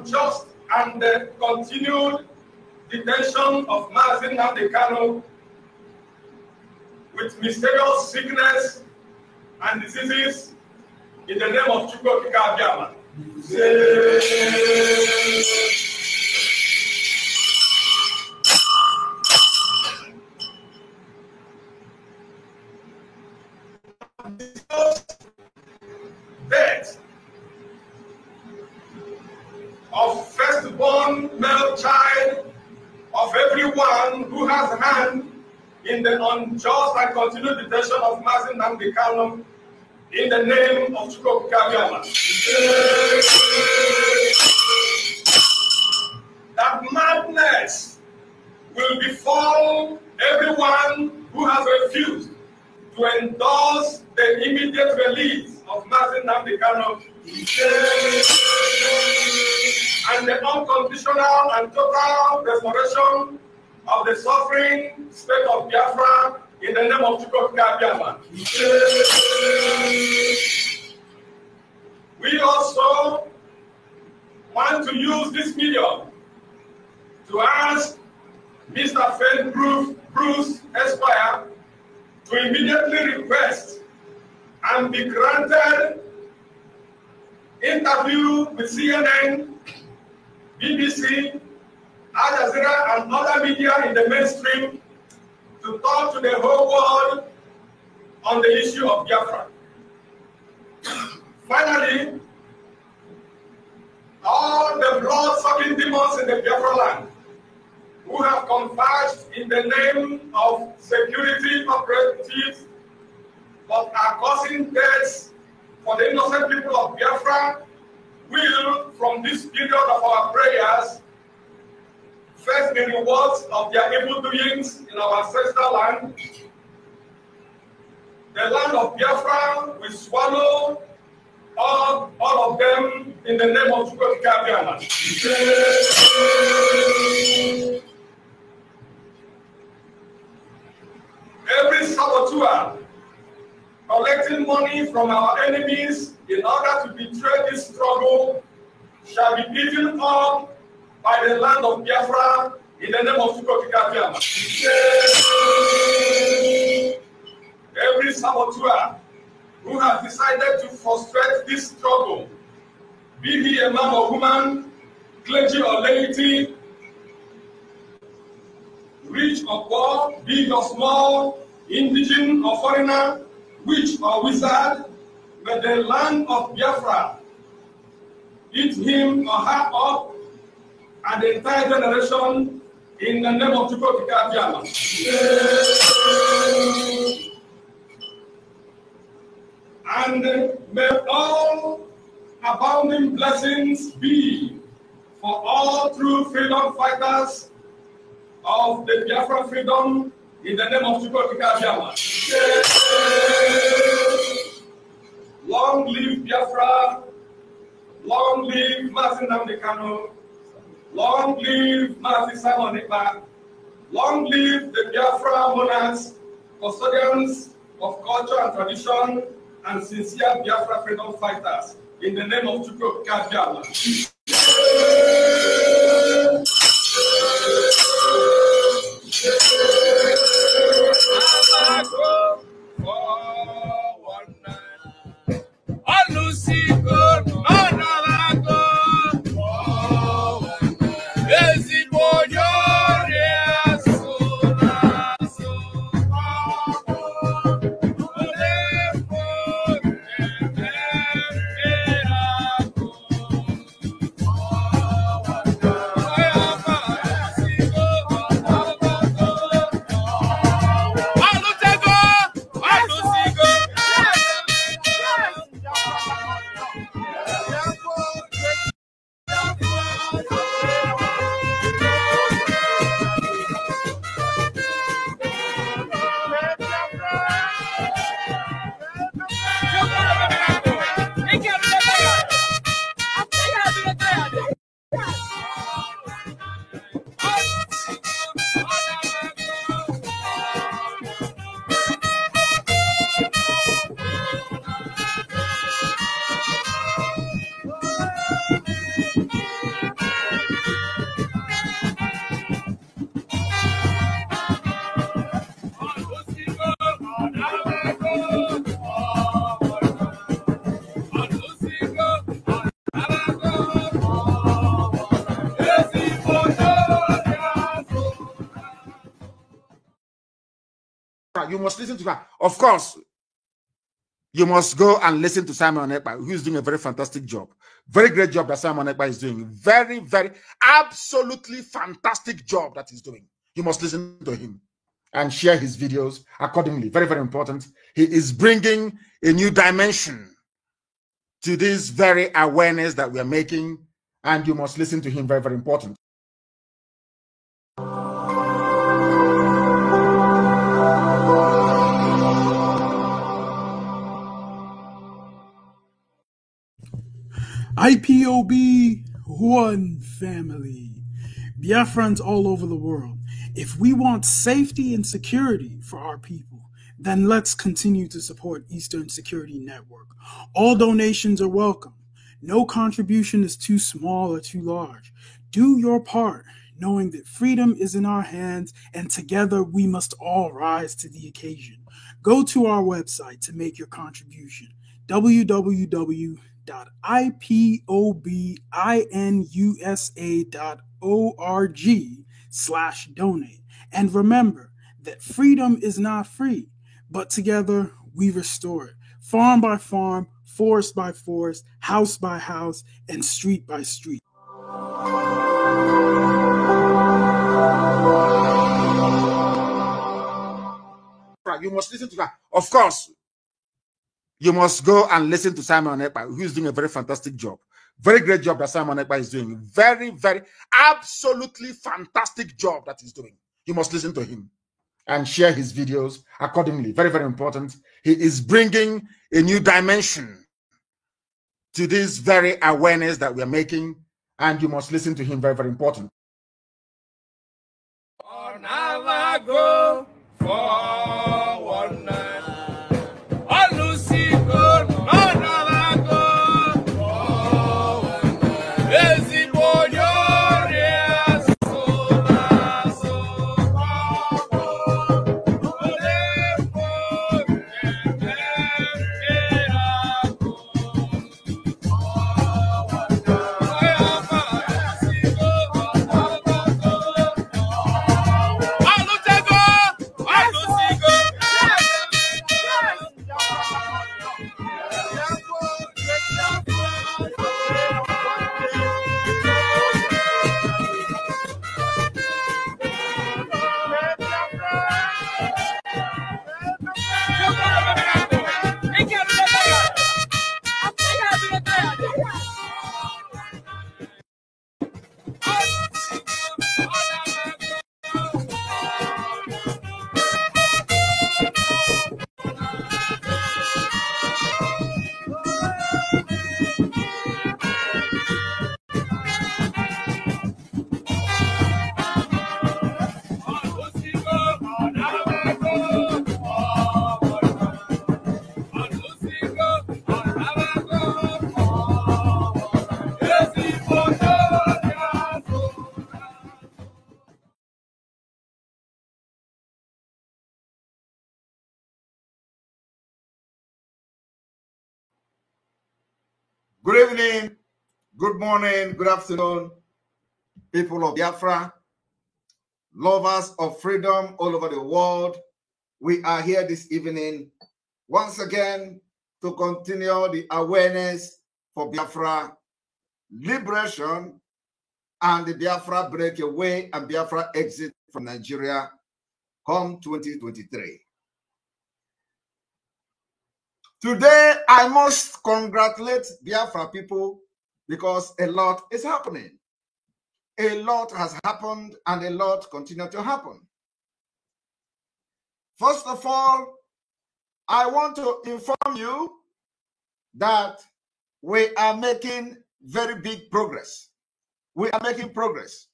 unjust and the continued detention of Mazin Namdekano with mysterious sickness and diseases in the name of Chukwu Kika Abiyama. continued detention of Mazin Nambi Kano in the name of Chukwu Kabiama. that madness will befall everyone who has refused to endorse the immediate release of Mazin Nambi Kano and the unconditional and total restoration of the suffering state of Biafra in the name of Jacob Kabiama. We also want to use this medium to ask Mr. Fred Bruce, Bruce Esquire to immediately request and be granted interview with CNN, BBC, Al Jazeera, and other media in the mainstream to talk to the whole world on the issue of Biafra. Finally, all the blood-sucking demons in the Biafra land who have converged in the name of security operatives but are causing deaths for the innocent people of Biafra will, from this period of our prayers, First, the rewards of their evil doings in our ancestral land. The land of Biafra will swallow all, all of them in the name of Chukwukabiana. Every saboteur collecting money from our enemies in order to betray this struggle shall be eaten up by the land of Biafra in the name of Fukokigabiam. Every saboteur who has decided to frustrate this struggle, be he a man or woman, clergy or laity, rich or poor, big or small, indigenous or foreigner, witch or wizard, but the land of Biafra eat him or her up and the entire generation in the name of Chukwu Kikabiyama. And may all abounding blessings be for all true freedom fighters of the Biafra freedom in the name of Chukwu Kikabiyama. Long live Biafra. Long live Mazinam Dekano long live Mazi Simon long live the Biafra monarchs, custodians of culture and tradition, and sincere Biafra freedom fighters, in the name of Chukwu Kajama. You must listen to her. Of course, you must go and listen to Simon Ekpa, who's doing a very fantastic job. Very great job that Simon Ekpa is doing. Very, very, absolutely fantastic job that he's doing. You must listen to him and share his videos accordingly. Very, very important. He is bringing a new dimension to this very awareness that we are making, and you must listen to him. Very, very important. IPOB one family. Biafrans all over the world. If we want safety and security for our people, then let's continue to support Eastern Security Network. All donations are welcome. No contribution is too small or too large. Do your part, knowing that freedom is in our hands and together we must all rise to the occasion. Go to our website to make your contribution www www.ipobinusa.org slash donate. And remember that freedom is not free, but together we restore it. Farm by farm, forest by forest, house by house, and street by street. You must listen to that. Of course, you must go and listen to Simon Ekpa, who is doing a very fantastic job. Very great job that Simon Ekpa is doing. Very, very, absolutely fantastic job that he's doing. You must listen to him and share his videos accordingly. Very, very important. He is bringing a new dimension to this very awareness that we are making, and you must listen to him. Very, very important. evening, good morning, good afternoon, people of Biafra, lovers of freedom all over the world. We are here this evening once again to continue the awareness for Biafra liberation and the Biafra breakaway and Biafra exit from Nigeria come 2023. Today, I must congratulate Biafra people because a lot is happening. A lot has happened and a lot continue to happen. First of all, I want to inform you that we are making very big progress. We are making progress.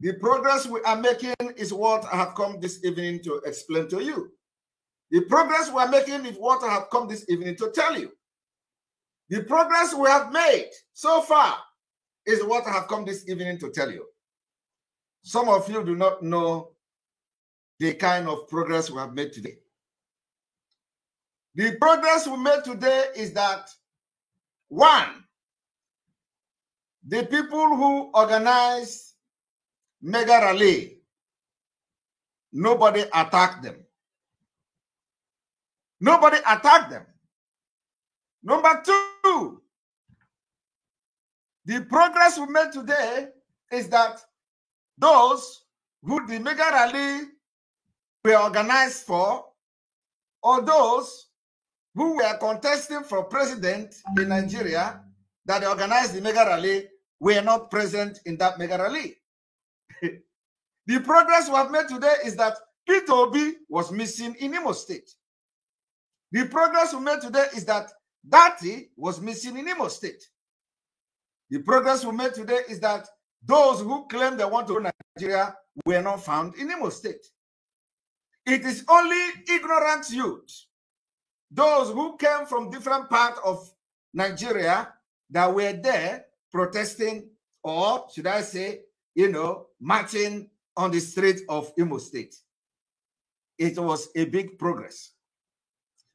The progress we are making is what I have come this evening to explain to you. The progress we are making is what I have come this evening to tell you. The progress we have made so far is what I have come this evening to tell you. Some of you do not know the kind of progress we have made today. The progress we made today is that one, the people who organized mega rally, nobody attacked them. Nobody attacked them. Number two, the progress we made today is that those who the mega rally were organized for, or those who were contesting for president in Nigeria that organized the mega rally, were not present in that mega rally. the progress we have made today is that Peter Obi was missing in Imo State. The progress we made today is that Dati was missing in Imo State. The progress we made today is that those who claim they want to run Nigeria were not found in Imo State. It is only ignorant youth, those who came from different parts of Nigeria that were there protesting or, should I say, you know, marching on the streets of Imo State. It was a big progress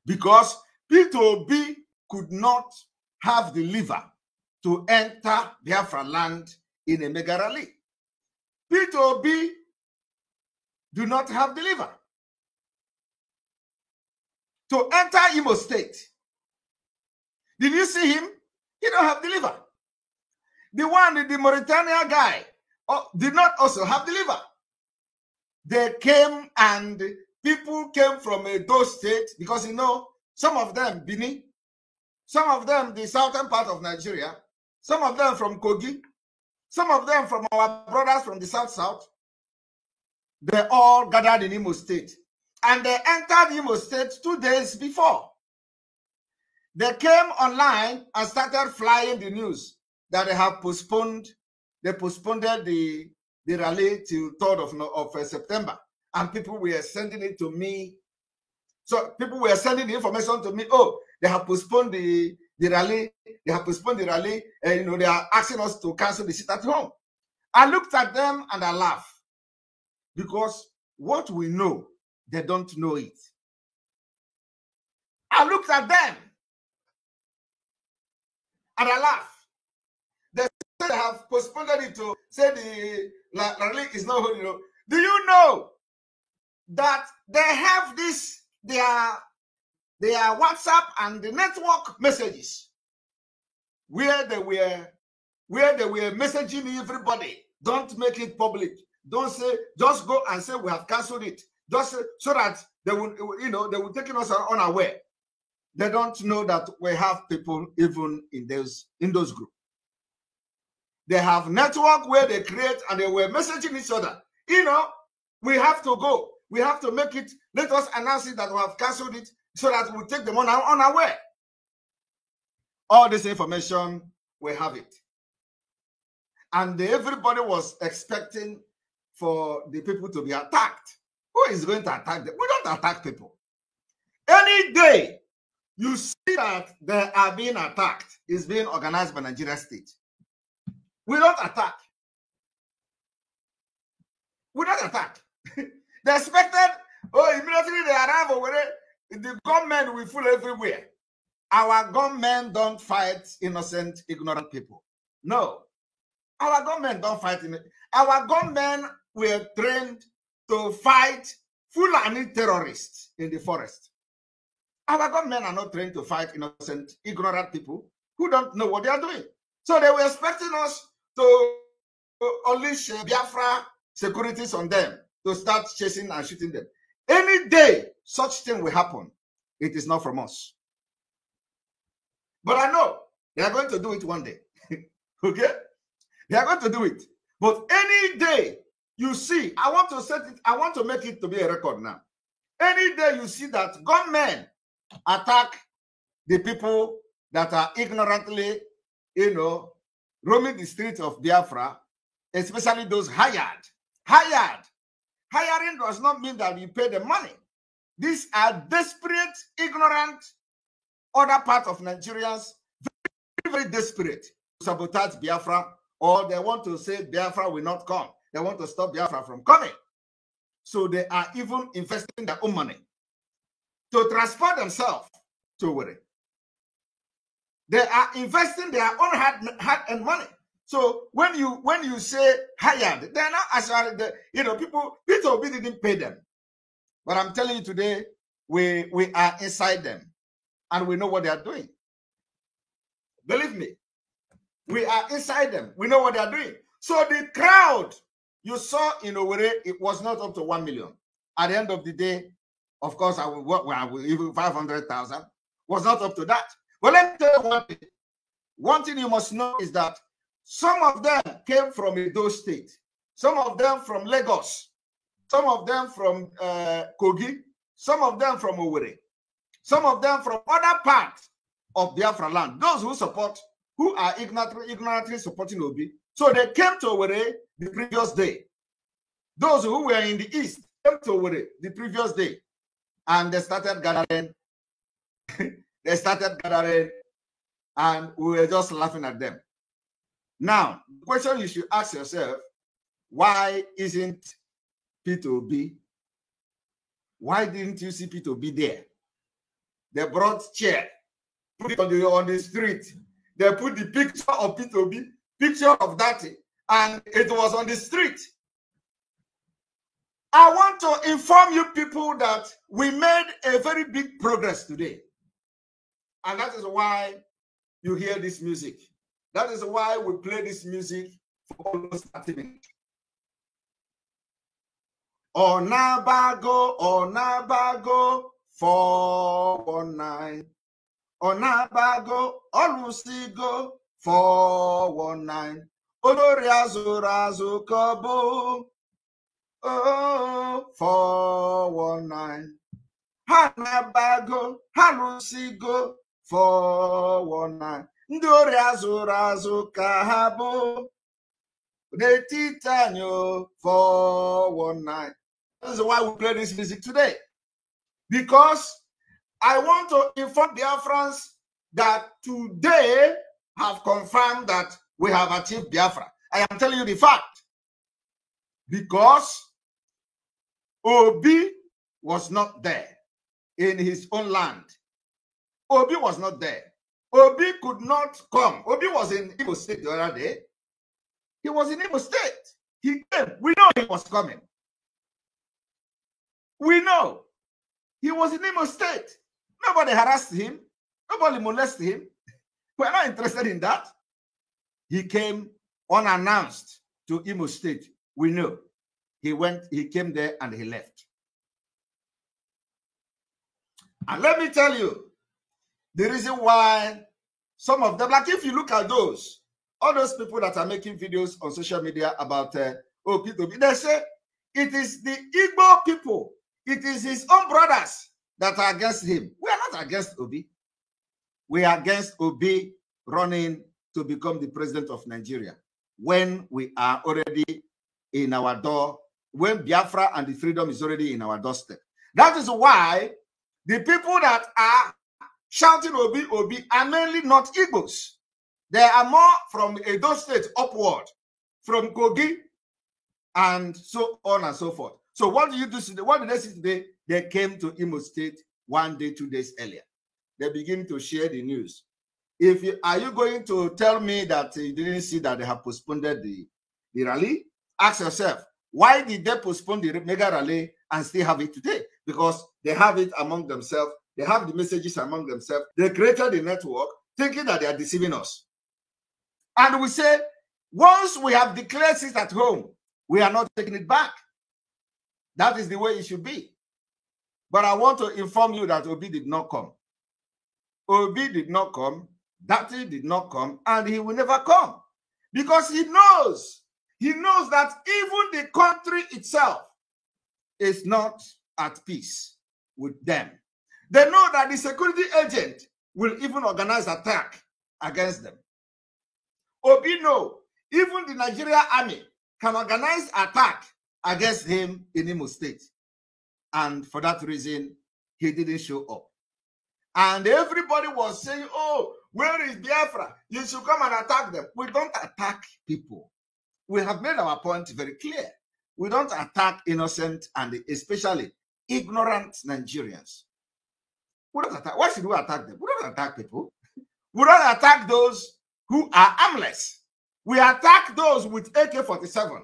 because P2B could not have the liver to enter Biafra land in a mega P2B do not have the liver to enter Imo State. Did you see him? He don't have the liver. The one, the Mauritania guy, oh, did not also have the liver. They came and people came from a those states because you know some of them Benin, some of them the southern part of Nigeria, some of them from Kogi, some of them from our brothers from the south south. They all gathered in Imo State, and they entered Imo State two days before. They came online and started flying the news that they have postponed. They postponed the the rally till 3rd of, of uh, September and people were sending it to me. So people were sending the information to me. Oh, they have postponed the, the rally. They have postponed the rally. And, eh, you know, they are asking us to cancel the sit at home. I looked at them and I laughed because what we know, they don't know it. I looked at them and I laughed. They have postponed it to say the rally is not holding up. Do you know that they have this their their WhatsApp and the network messages where they were where they were messaging everybody. Don't make it public. Don't say just go and say we have cancelled it. Just so that they will you know they will take us unaware. They don't know that we have people even in those in those groups. They have network where they create and they were messaging each other. You know, we have to go we have to make it. Let us announce it that we have cancelled it so that we take them on our way. All this information, we have it. And everybody was expecting for the people to be attacked. Who is going to attack them? We don't attack people. Any day you see that they are being attacked, is being organized by Nigeria State. We don't attack. We don't attack. They expected, oh, immediately they arrive over there, the gunmen will fool everywhere. Our gunmen don't fight innocent, ignorant people. No. Our gunmen don't fight. In, our gunmen were trained to fight Fulani terrorists in the forest. Our gunmen are not trained to fight innocent, ignorant people who don't know what they are doing. So they were expecting us to unleash Biafra securities on them to start chasing and shooting them. Any day such thing will happen, it is not from us. But I know they are going to do it one day. okay? They are going to do it. But any day you see, I want to set it, I want to make it to be a record now. Any day you see that gunmen attack the people that are ignorantly, you know, roaming the streets of Biafra, especially those hired, hired hiring does not mean that we pay the money. These are desperate, ignorant, other part of Nigerians, very, very desperate to sabotage Biafra, or they want to say Biafra will not come. They want to stop Biafra from coming. So they are even investing their own money to transport themselves to worry. They are investing their own hard, and money so when you when you say hired, they're not as you know people Peter Obi didn't pay them, but I'm telling you today we we are inside them, and we know what they are doing. Believe me, we are inside them. We know what they are doing. So the crowd you saw in Owerri, it was not up to one million. At the end of the day, of course, I will work. Well, even five hundred thousand was not up to that. But let me tell you one thing. One thing you must know is that some of them came from Edo State, some of them from Lagos, some of them from uh, Kogi, some of them from Owerri, some of them from other parts of Biafra land. Those who support, who are ignorantly, ignorantly supporting Obi. So they came to Owerri the previous day. Those who were in the east came to Owerri the previous day and they started gathering. they started gathering and we were just laughing at them. Now, the question you should ask yourself why isn't P2B? Why didn't you see P2B there? They brought chair, put it on the, on the street. They put the picture of P2B, picture of that, and it was on the street. I want to inform you people that we made a very big progress today. And that is why you hear this music. That is why we play this music for almost 30 minutes. Onabago, Onabago, 419. Onabago, Olusigo, 419. Olórí azụrụ azụ ka ọ bụ oh, 419. Ha na ha lụsigo 419 ndị ori azụrụ azụ ka ha bụ n'etiti anyị 419 this is why we play this music today because i want to inform biafrans that today have confirmed that we have achieved biafra i am telling you the fact because obi was not there in his own land obi was not there Obi could not come. Obi was in Imo State the other day. He was in Imo State. He came. We know he was coming. We know. He was in Imo State. Nobody harassed him. Nobody molested him. We're not interested in that. He came unannounced to Imo State. We know. He went, he came there and he left. And let me tell you, the reason why some of them, like if you look at those, all those people that are making videos on social media about uh, oh, they say it is the Igbo people, it is his own brothers that are against him. We are not against Obi. We are against Obi running to become the president of Nigeria when we are already in our door, when Biafra and the freedom is already in our doorstep. That is why the people that are shouting Obi, Obi are mainly not Igbos. There are more from Edo State upward, from Kogi, and so on and so forth. So what do you do today? What did they see today? They came to Imo State one day, two days earlier. They begin to share the news. If you, are you going to tell me that you didn't see that they have postponed the, the rally? Ask yourself, why did they postpone the mega rally and still have it today? Because they have it among themselves they have the messages among themselves. They created the network thinking that they are deceiving us. And we say, once we have declared this at home, we are not taking it back. That is the way it should be. But I want to inform you that Obi did not come. Obi did not come. Dati did not come. And he will never come. Because he knows, he knows that even the country itself is not at peace with them. They know that the security agent will even organize attack against them. Obi know even the Nigeria army can organize attack against him in Imo State. And for that reason, he didn't show up. And everybody was saying, oh, where is Biafra? You should come and attack them. We don't attack people. We have made our point very clear. We don't attack innocent and especially ignorant Nigerians. We don't attack. Why should we attack them? We don't attack people. We don't attack those who are armless. We attack those with AK-47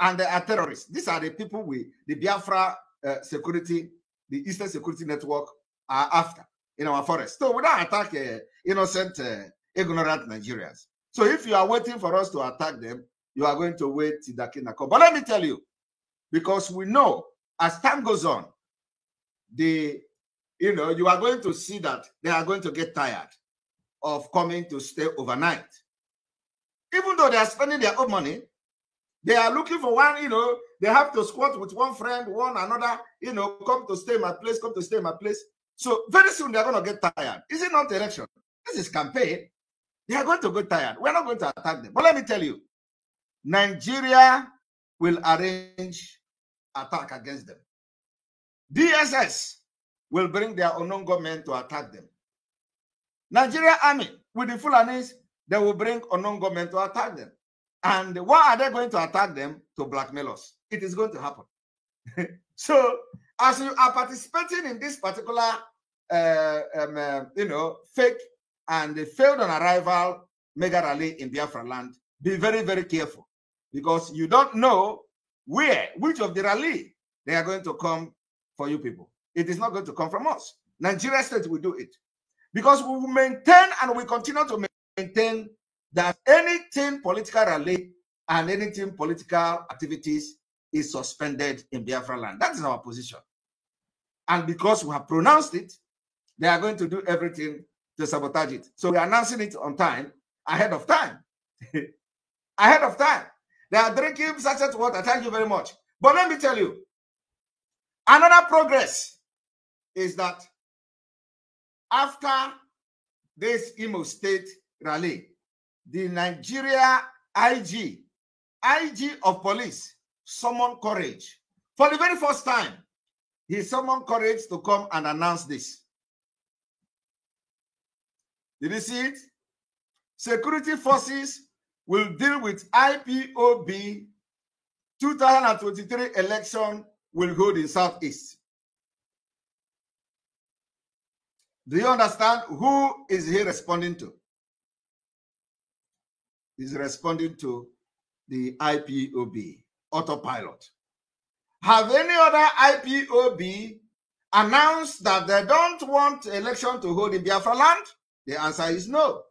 and they are terrorists. These are the people we, the Biafra uh, security, the Eastern Security Network are after in our forest. So we don't attack uh, innocent, uh, ignorant Nigerians. So if you are waiting for us to attack them, you are going to wait till the Kinako. But let me tell you, because we know as time goes on, the you know, you are going to see that they are going to get tired of coming to stay overnight. Even though they are spending their own money, they are looking for one, you know, they have to squat with one friend, one another, you know, come to stay my place, come to stay my place. So very soon they're going to get tired. Is it not election? This is campaign. They are going to get tired. We're not going to attack them. But let me tell you, Nigeria will arrange attack against them. DSS will bring their Onongo men to attack them. Nigeria army with the Fulanis, they will bring Onongo men to attack them. And why are they going to attack them? To blackmail us. It is going to happen. so, as you are participating in this particular, uh, um, uh, you know, fake and failed on arrival mega rally in Biafra land, be very, very careful because you don't know where, which of the rally they are going to come for you people. It is not going to come from us. Nigeria State will do it. Because we will maintain and we continue to maintain that anything political rally and anything political activities is suspended in Biafra land. That is our position. And because we have pronounced it, they are going to do everything to sabotage it. So we're announcing it on time, ahead of time. ahead of time. They are drinking such water. Thank you very much. But let me tell you, another progress is that after this Imo State rally, the Nigeria IG, IG of police, summoned courage. For the very first time, he summoned courage to come and announce this. Did you see it? Security forces will deal with IPOB 2023 election will hold in Southeast. Do you understand? Who is he responding to? He's responding to the IPOB, autopilot. Have any other IPOB announced that they don't want election to hold in Biafra land? The answer is no.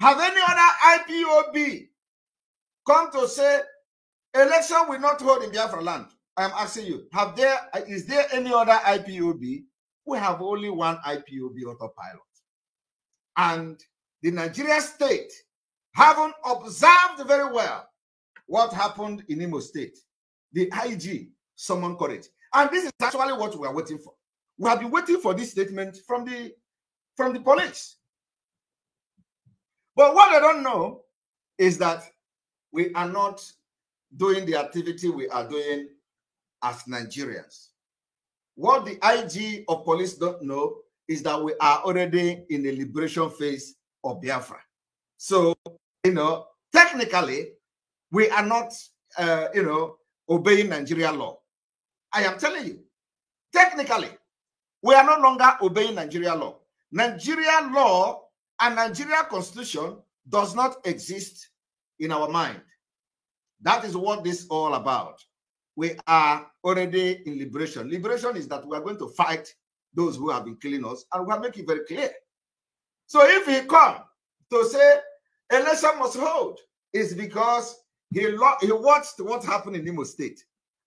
Have any other IPOB come to say election will not hold in Biafra land? I am asking you, have there is there any other IPOB we have only one IPOB autopilot. And the Nigeria state haven't observed very well what happened in Imo State. The IG summoned courage. And this is actually what we are waiting for. We have been waiting for this statement from the from the police. But what I don't know is that we are not doing the activity we are doing as Nigerians. What the IG of police don't know is that we are already in the liberation phase of Biafra. So, you know, technically, we are not, uh, you know, obeying Nigeria law. I am telling you, technically, we are no longer obeying Nigeria law. Nigeria law and Nigeria constitution does not exist in our mind. That is what this all about we are already in liberation. Liberation is that we are going to fight those who have been killing us, and we are making very clear. So if he come to say election must hold, it's because he he watched what happened in Imo State,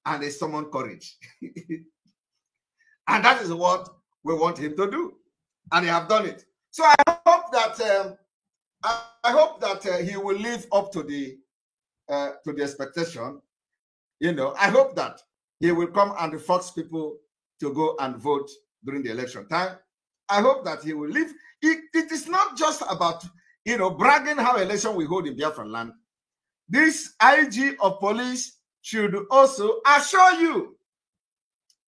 and he summoned courage, and that is what we want him to do, and he have done it. So I hope that um, I, I, hope that uh, he will live up to the uh, to the expectation you know, I hope that he will come and force people to go and vote during the election time. I hope that he will leave. It, it is not just about, you know, bragging how election we hold in Biafra land. This IG of police should also assure you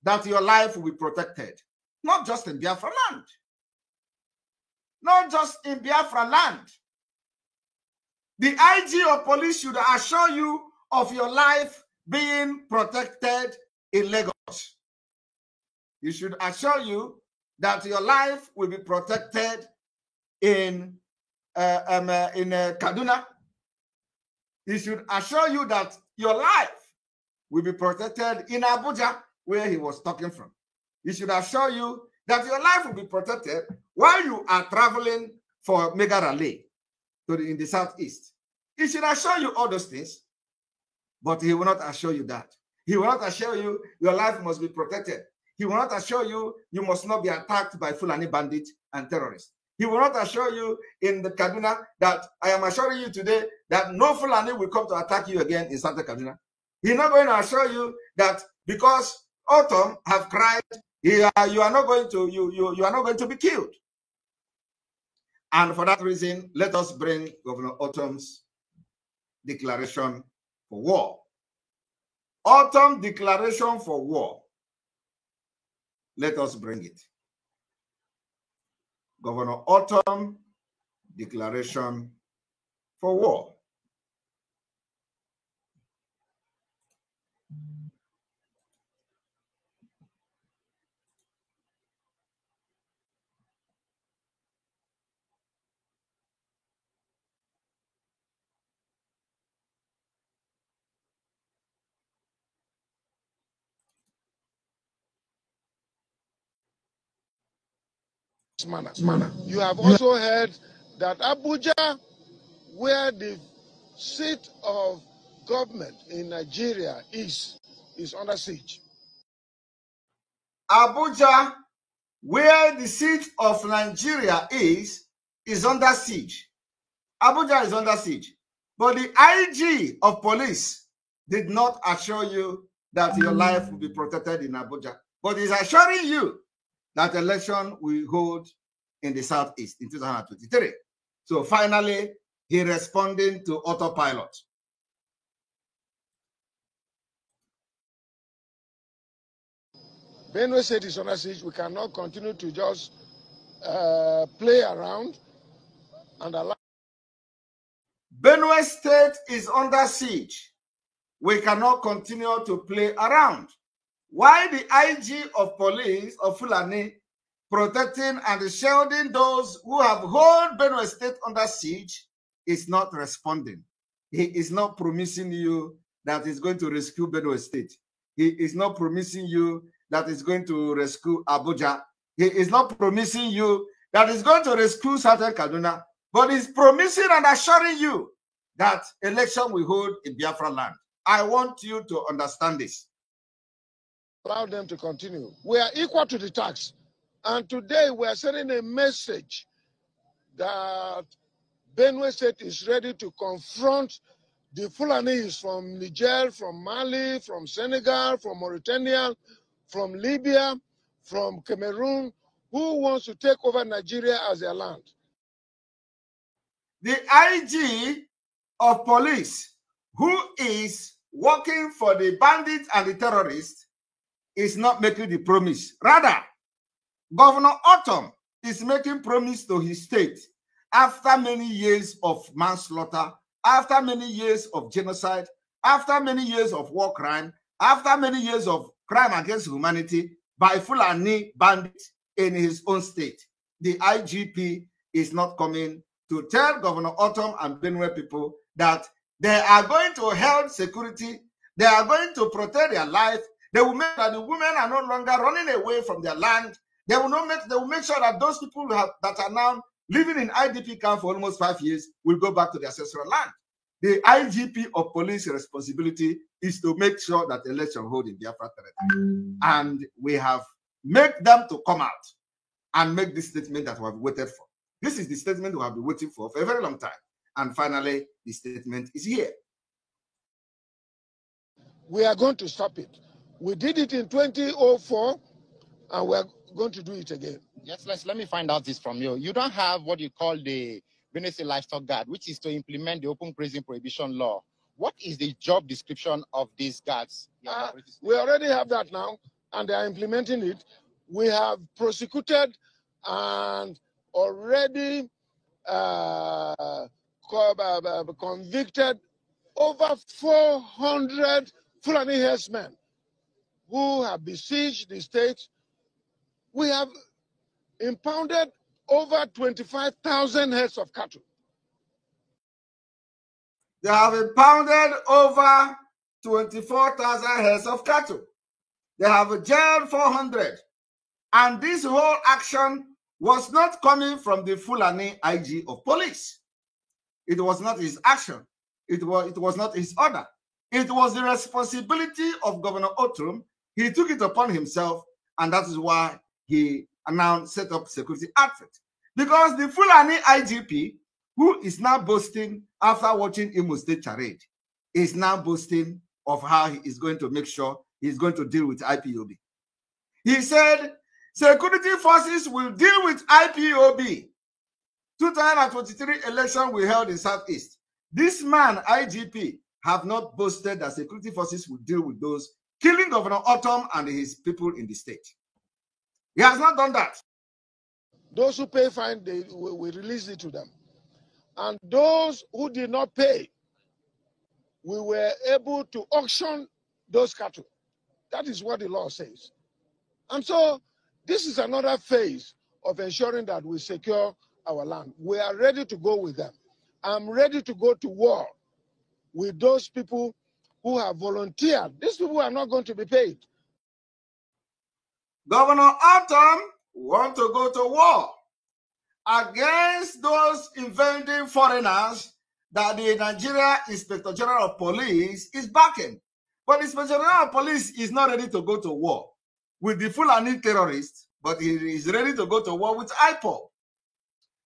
that your life will be protected, not just in Biafra land, not just in Biafra land. The IG of police should assure you of your life being protected in Lagos. You should assure you that your life will be protected in uh, um, uh, in uh, Kaduna. He should assure you that your life will be protected in Abuja, where he was talking from. He should assure you that your life will be protected while you are traveling for Megara Lake, in the southeast. He should assure you all those things but he will not assure you that. He will not assure you your life must be protected. He will not assure you you must not be attacked by Fulani bandits and terrorists. He will not assure you in the Kaduna that I am assuring you today that no Fulani will come to attack you again in Santa Kaduna. He's not going to assure you that because autumn have cried, you are, uh, you are not going to you, you you are not going to be killed. And for that reason, let us bring Governor Autumn's declaration for war. Autumn declaration for war. Let us bring it. Governor Autumn declaration for war. manner. manner. You have also heard that Abuja, where the seat of government in Nigeria is, is under siege. Abuja, where the seat of Nigeria is, is under siege. Abuja is under siege. But the IG of police did not assure you that your mm. life will be protected in Abuja. But is assuring you that election we hold in the Southeast in 2023. So finally, he responding to autopilot. Benue State is under siege. We cannot continue to just uh, play around and allow. Benue State is under siege. We cannot continue to play around why the IG of police of Fulani protecting and shielding those who have held Benue State under siege is not responding. He is not promising you that he's going to rescue Benue State. He is not promising you that he's going to rescue Abuja. He is not promising you that he's going to rescue Southern Kaduna, but he's promising and assuring you that election will hold in Biafra land. I want you to understand this allow them to continue. We are equal to the tax. And today we are sending a message that Benue State is ready to confront the Fulanis from Niger, from Mali, from Senegal, from Mauritania, from Libya, from Cameroon, who wants to take over Nigeria as their land. The IG of police, who is working for the bandits and the terrorists, is not making the promise. Rather, Governor Autumn is making promise to his state after many years of manslaughter, after many years of genocide, after many years of war crime, after many years of crime against humanity by Fulani bandits in his own state. The IGP is not coming to tell Governor Autumn and Benue people that they are going to help security, they are going to protect their life, they will make that the women are no longer running away from their land. They will not make. They will make sure that those people have, that are now living in IDP camp for almost five years will go back to their ancestral land. The IGP of police responsibility is to make sure that election hold in Biafra territory, and we have made them to come out and make this statement that we have waited for. This is the statement we have been waiting for for a very long time. And finally, the statement is here. We are going to stop it. We did it in 2004, and we're going to do it again. Yes, let's, let me find out this from you. You don't have what you call the Venice Livestock Guard, which is to implement the open grazing prohibition law. What is the job description of these guards? Uh, we already have that now, and they are implementing it. We have prosecuted and already uh, uh, uh convicted over 400 Fulani herdsmen who have besieged the state, we have impounded over 25,000 heads of cattle. They have impounded over 24,000 heads of cattle. They have jailed 400. And this whole action was not coming from the Fulani IG of police. It was not his action. It was, it was not his order. It was the responsibility of Governor Otum he took it upon himself, and that is why he announced set up security outfit. Because the Fulani IGP, who is now boasting after watching Imo State charade, is now boasting of how he is going to make sure he's going to deal with IPOB. He said, security forces will deal with IPOB. 2023 election we held in Southeast. This man, IGP, have not boasted that security forces will deal with those killing Governor Autumn and his people in the state. He has not done that. Those who pay fine, they we release it to them. And those who did not pay, we were able to auction those cattle. That is what the law says. And so this is another phase of ensuring that we secure our land. We are ready to go with them. I'm ready to go to war with those people who have volunteered. These people are not going to be paid. Governor Atom want to go to war against those invading foreigners that the Nigeria Inspector General of Police is backing. But the Inspector General of Police is not ready to go to war with the Fulani terrorists, but he is ready to go to war with IPOB.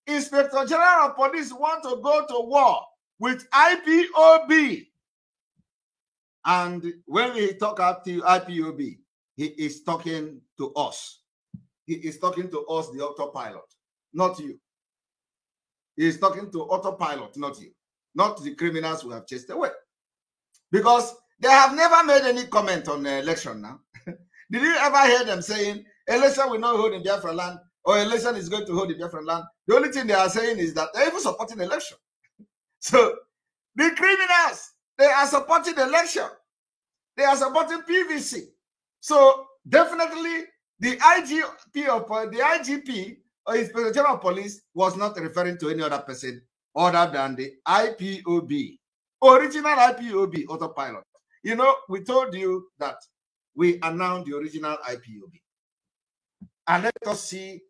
Inspector General of Police want to go to war with IPOB, and when he talk up to IPOB, he is talking to us. He is talking to us, the autopilot, not you. He is talking to autopilot, not you, not the criminals who have chased away. Because they have never made any comment on the election now. Did you ever hear them saying election will not hold in Biafra land or election is going to hold in Biafra land? The only thing they are saying is that they're even supporting election. so the criminals they are supporting the election. They are supporting PVC. So definitely the IGP of uh, the IGP or uh, Inspector General Police was not referring to any other person other than the IPOB, original IPOB autopilot. You know, we told you that we announced the original IPOB. And let us see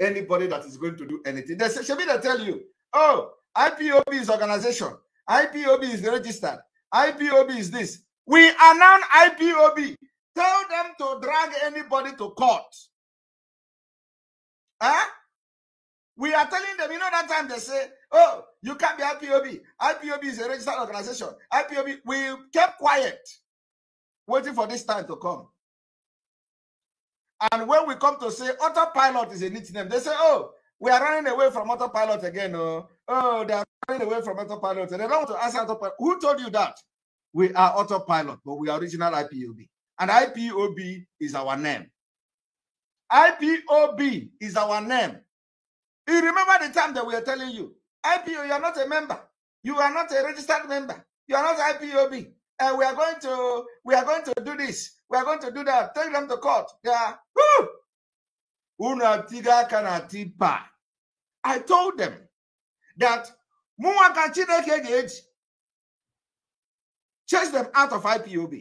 anybody that is going to do anything. They should be they tell you, oh, IPOB is organization. IPOB is registered. IPOB is this. We announce IPOB. Tell them to drag anybody to court. Huh? We are telling them, you know, that time they say, oh, you can't be IPOB. IPOB is a registered organization. IPOB, we kept quiet, waiting for this time to come. And when we come to say autopilot is a neat name, they say, oh, We are running away from autopilot again. Oh, oh they are running away from autopilot. and They don't want to answer autopilot. Who told you that? We are autopilot, but we are original IPOB. And IPOB is our name. IPOB is our name. You remember the time that we are telling you, IPO, you are not a member. You are not a registered member. You are not IPOB. And we are going to we are going to do this. We are going to do that. Take them to court. Yeah. are woo, i told them that mụnwa ka chineke ga-eji chase them out of ipob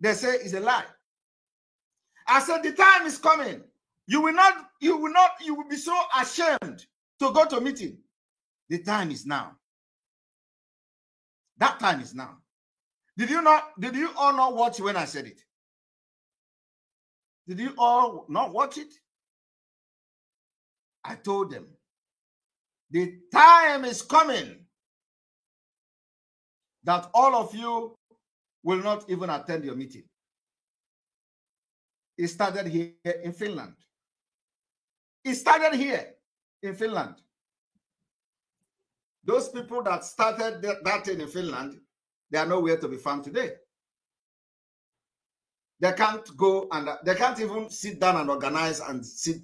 they say it's a lie i said the time is coming you will not you will not you will be so ashamed to go to meeting the time is now that time is now did you not did you all not watch when i said it did you all not watch it I told them, the time is coming that all of you will not even attend your meeting. It started here in Finland. It started here in Finland. Those people that started that thing in Finland, they are nowhere to be found today. They can't go and they can't even sit down and organize and sit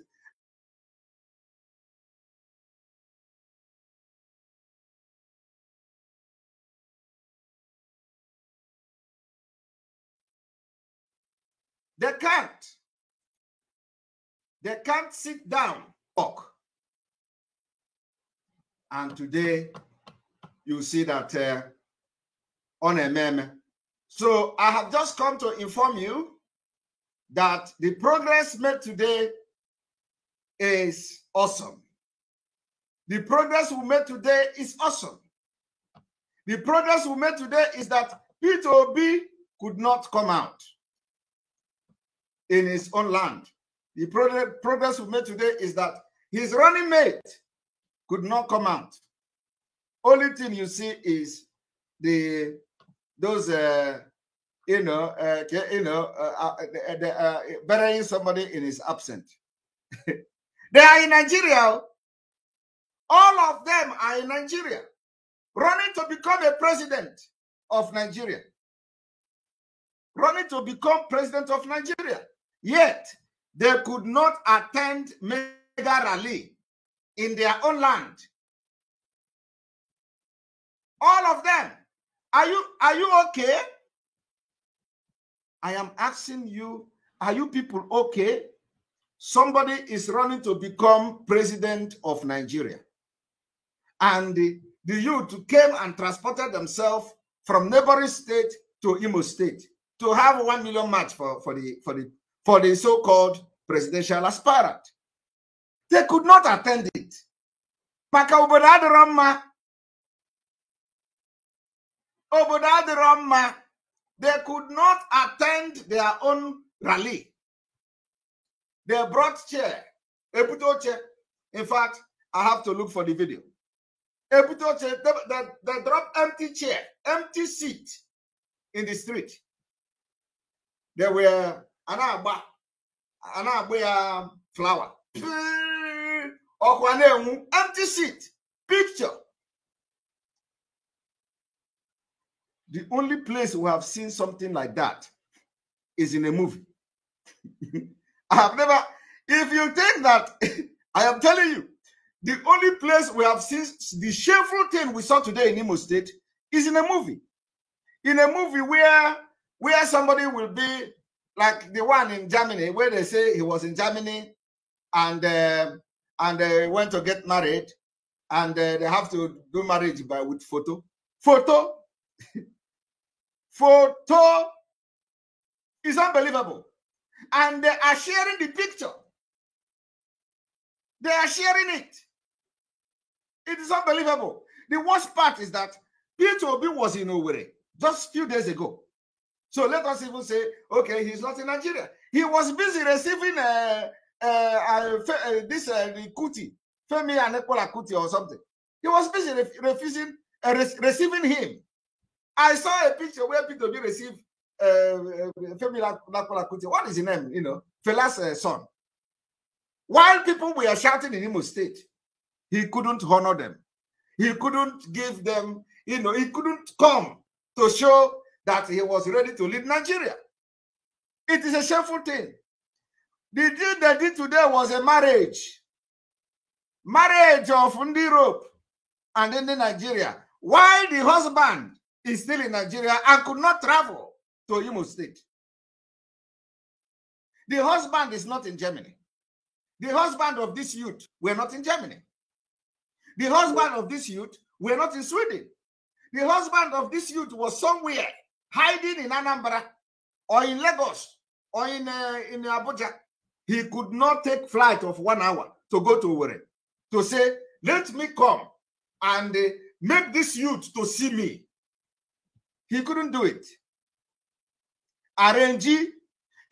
They can't. They can't sit down, talk. And today, you see that uh, on a meme. So I have just come to inform you that the progress made today is awesome. The progress we made today is awesome. The progress we made today is that P2B could not come out in his own land. The progress we made today is that his running mate could not come out. Only thing you see is the those uh, you know uh, you know uh, uh, burying somebody in his absence. they are in Nigeria. All of them are in Nigeria, running to become a president of Nigeria, running to become president of Nigeria. Yet they could not attend mega rally in their own land. All of them. Are you are you okay? I am asking you, are you people okay? Somebody is running to become president of Nigeria. And the, the youth came and transported themselves from neighboring state to Imo State to have one million match for, for, the, for, the, for the so called presidential aspirant. They could not attend it. Maka obodo adịrọ They could not attend their own rally. They brought chair. chair. In fact, I have to look for the video. Ebutoche, they, they, they dropped empty chair, empty seat in the street. There were a na flower. ya flawa ọkwa na-enwu empty seat picture the only place we have seen something like that is in a movie i have never if you think that i am telling you the only place we have seen the shameful thing we saw today in Imo State is in a movie. In a movie where where somebody will be like the one in Germany where they say he was in Germany and um, uh, and they went to get married and uh, they have to do marriage by with photo photo photo is unbelievable and they are sharing the picture they are sharing it it is unbelievable the worst part is that Peter Obi was in Owerri just few days ago so let us even say, okay, he's not in Nigeria. He was busy receiving uh, uh, uh, uh this uh, the Kuti, Femi Anekola Kuti or something. He was busy ref refusing, uh, re receiving him. I saw a picture where Peter B received uh, Femi Anekola Kuti. What is his name? You know, Fela's son. While people were shouting in Imo State, he couldn't honor them. He couldn't give them, you know, he couldn't come to show that he was ready to leave Nigeria. It is a shameful thing. The deal they did today was a marriage. Marriage of Europe and in Nigeria. While the husband is still in Nigeria and could not travel to Imo State. The husband is not in Germany. The husband of this youth were not in Germany. The husband of this youth were not in Sweden. The husband of this youth was somewhere hiding in Anambra or in Lagos or in, uh, in Abuja, he could not take flight of one hour to go to Owerri to say, let me come and uh, make this youth to see me. He couldn't do it. RNG,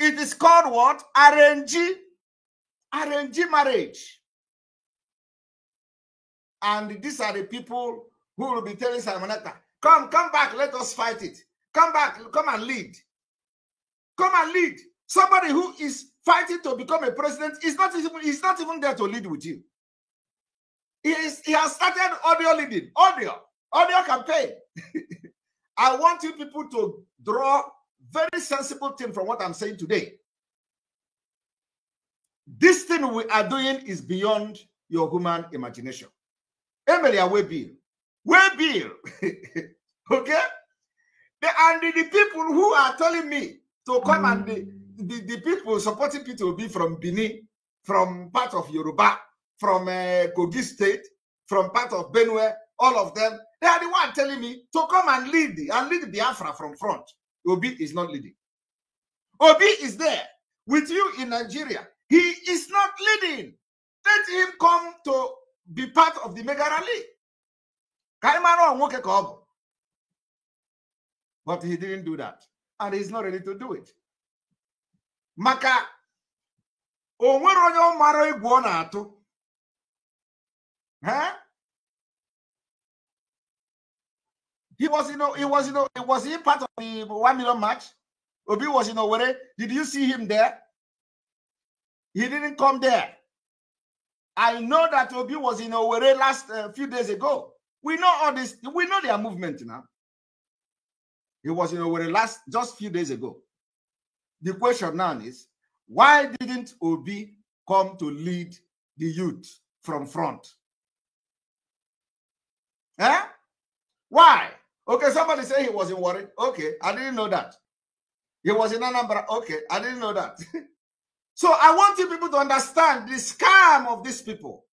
it is called what? RNG, RNG marriage. And these are the people who will be telling Simonetta, come, come back, let us fight it. Come back, come and lead. Come and lead. Somebody who is fighting to become a president is not even is not even there to lead with you. He, is, he has started audio leading, audio, audio campaign. I want you people to draw very sensible thing from what I'm saying today. This thing we are doing is beyond your human imagination. Emily, I will be. Will be. okay? The, and the, the, people who are telling me to come and mm. the, the, the people supporting Peter Obi from Benin, from part of Yoruba, from uh, Kogi State, from part of Benue, all of them, they are the one telling me to come and lead and lead Biafra from front. Obi is not leading. Obi is there with you in Nigeria. He is not leading. Let him come to be part of the Mega Rally. Kaimaro Nwokeko But he didn't do that. And he's not ready to do it. Maka o nwere onye ọ mara egwu ọ na-atụ. He was, you know, he was, you know, was he part of the one million match. Obi was in Owerri. Did you see him there? He didn't come there. I know that Obi was in Owerri last uh, few days ago. We know all this. We know their movement now. He was in Owerri last just few days ago. The question now is why didn't Obi come to lead the youth from front? Eh? Why? Okay, somebody say he was in worried. Okay, I didn't know that. He was in Anambra. Okay, I didn't know that. so I want you people to understand the scam of these people.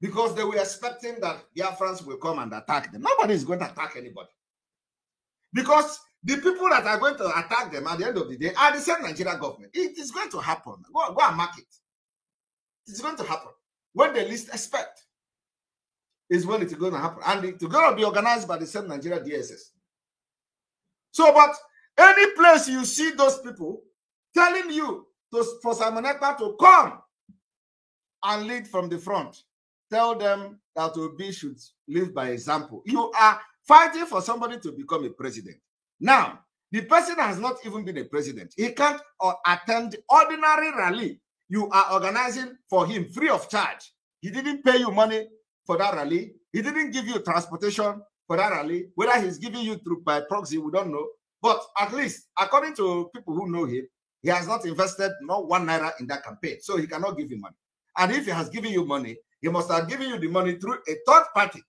Because they were expecting that the Afrans will come and attack them. Nobody is going to attack anybody. Because the people that are going to attack them at the end of the day are the same Nigeria government. It is going to happen. Go, go and mark it. It's going to happen. When they least expect is when it's going to happen. And it's going to be organized by the same Nigeria DSS. So, but any place you see those people telling you to, for Simon Ekpa to come and lead from the front, tell them that Obi should live by example. You are fighting for somebody to become a president. Now, the person has not even been a president. He can't uh, attend ordinary rally you are organizing for him free of charge. He didn't pay you money for that rally. He didn't give you transportation for that rally. Whether he's giving you through by proxy, we don't know. But at least, according to people who know him, he has not invested not one naira in that campaign, so he cannot give you money. And if he has given you money, he must have given you the money through a third party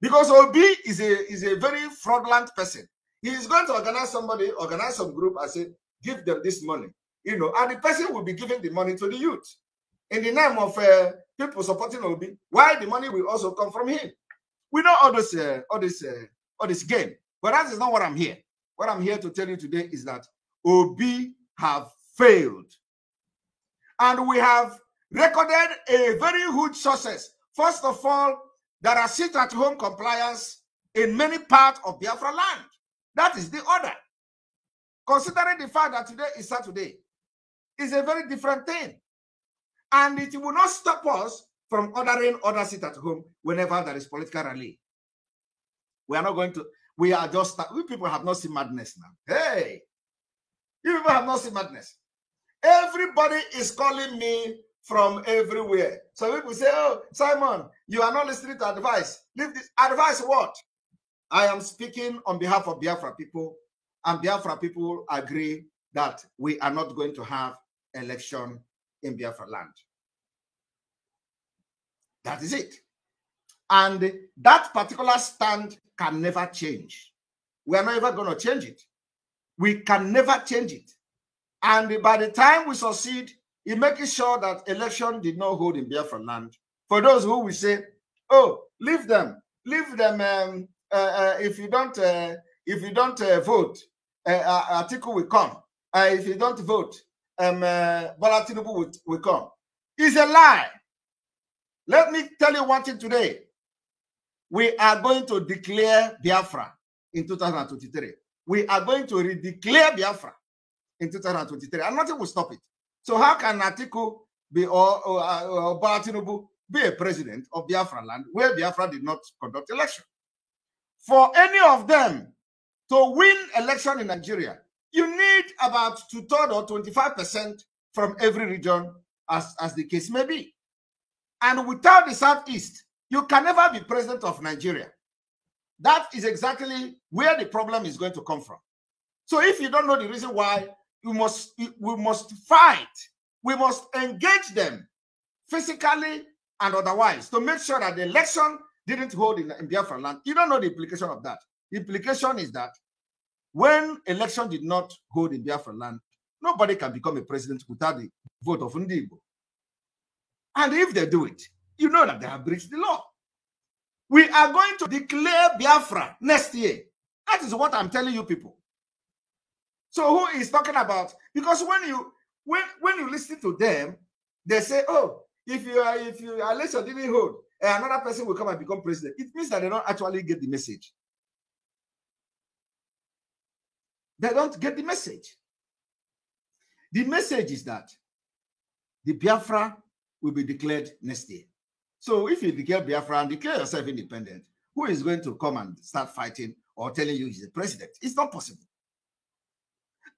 because Obi is a is a very fraudulent person. He is going to organize somebody, organize some group, and say, give them this money. You know, and the person will be giving the money to the youth in the name of uh, people supporting Obi. Why the money will also come from him? We know all this, uh, all this, uh, all this game. But that is not what I'm here. What I'm here to tell you today is that Obi have failed, and we have recorded a very huge success. First of all, there are sit at home compliance in many parts of Biafra land. That is the order. Considering the fact that today is Saturday, is a very different thing. And it will not stop us from ordering other sit at home whenever there is political rally. We are not going to, we are just, we people have not seen madness now. Hey, you people have not seen madness. Everybody is calling me from everywhere. so people say, Oh, Simon, you are not listening to advice. Leave this advice what? I am speaking on behalf of Biafra people, and Biafra people agree that we are not going to have election in Biafra land. That is it. And that particular stand can never change. We are never going to change it. We can never change it. And by the time we succeed in making sure that election did not hold in Biafra land. For those who will say, "Oh, leave them, leave them. Um, uh, uh, if you don't, uh, if you don't uh, vote, uh, uh article will come. Uh, if you don't vote, um, Tinubu will, will come." It's a lie. Let me tell you one thing today. We are going to declare Biafra in 2023. We are going to redeclare Biafra in 2023, and nothing will stop it. So how can Atiku be or, or, uh, be a president of Biafra land where Biafra did not conduct election? For any of them to win election in Nigeria, you need about two-thirds or 25% from every region, as, as the case may be. And without the Southeast, you can never be president of Nigeria. That is exactly where the problem is going to come from. So if you don't know the reason why we must we must fight we must engage them physically and otherwise to make sure that the election didn't hold in, in biafra land you don't know the implication of that the implication is that when election did not hold in biafra land nobody can become a president without the vote of Ndigo. and if they do it you know that they have breached the law we are going to declare biafra next year that is what i'm telling you people so who is talking about? Because when you when when you listen to them, they say, "Oh, if you are if you are less didn't hold, eh, another person will come and become president." It means that they don't actually get the message. They don't get the message. The message is that the Biafra will be declared next year. So if you declare Biafra and declare yourself independent, who is going to come and start fighting or telling you he's the president? It's not possible.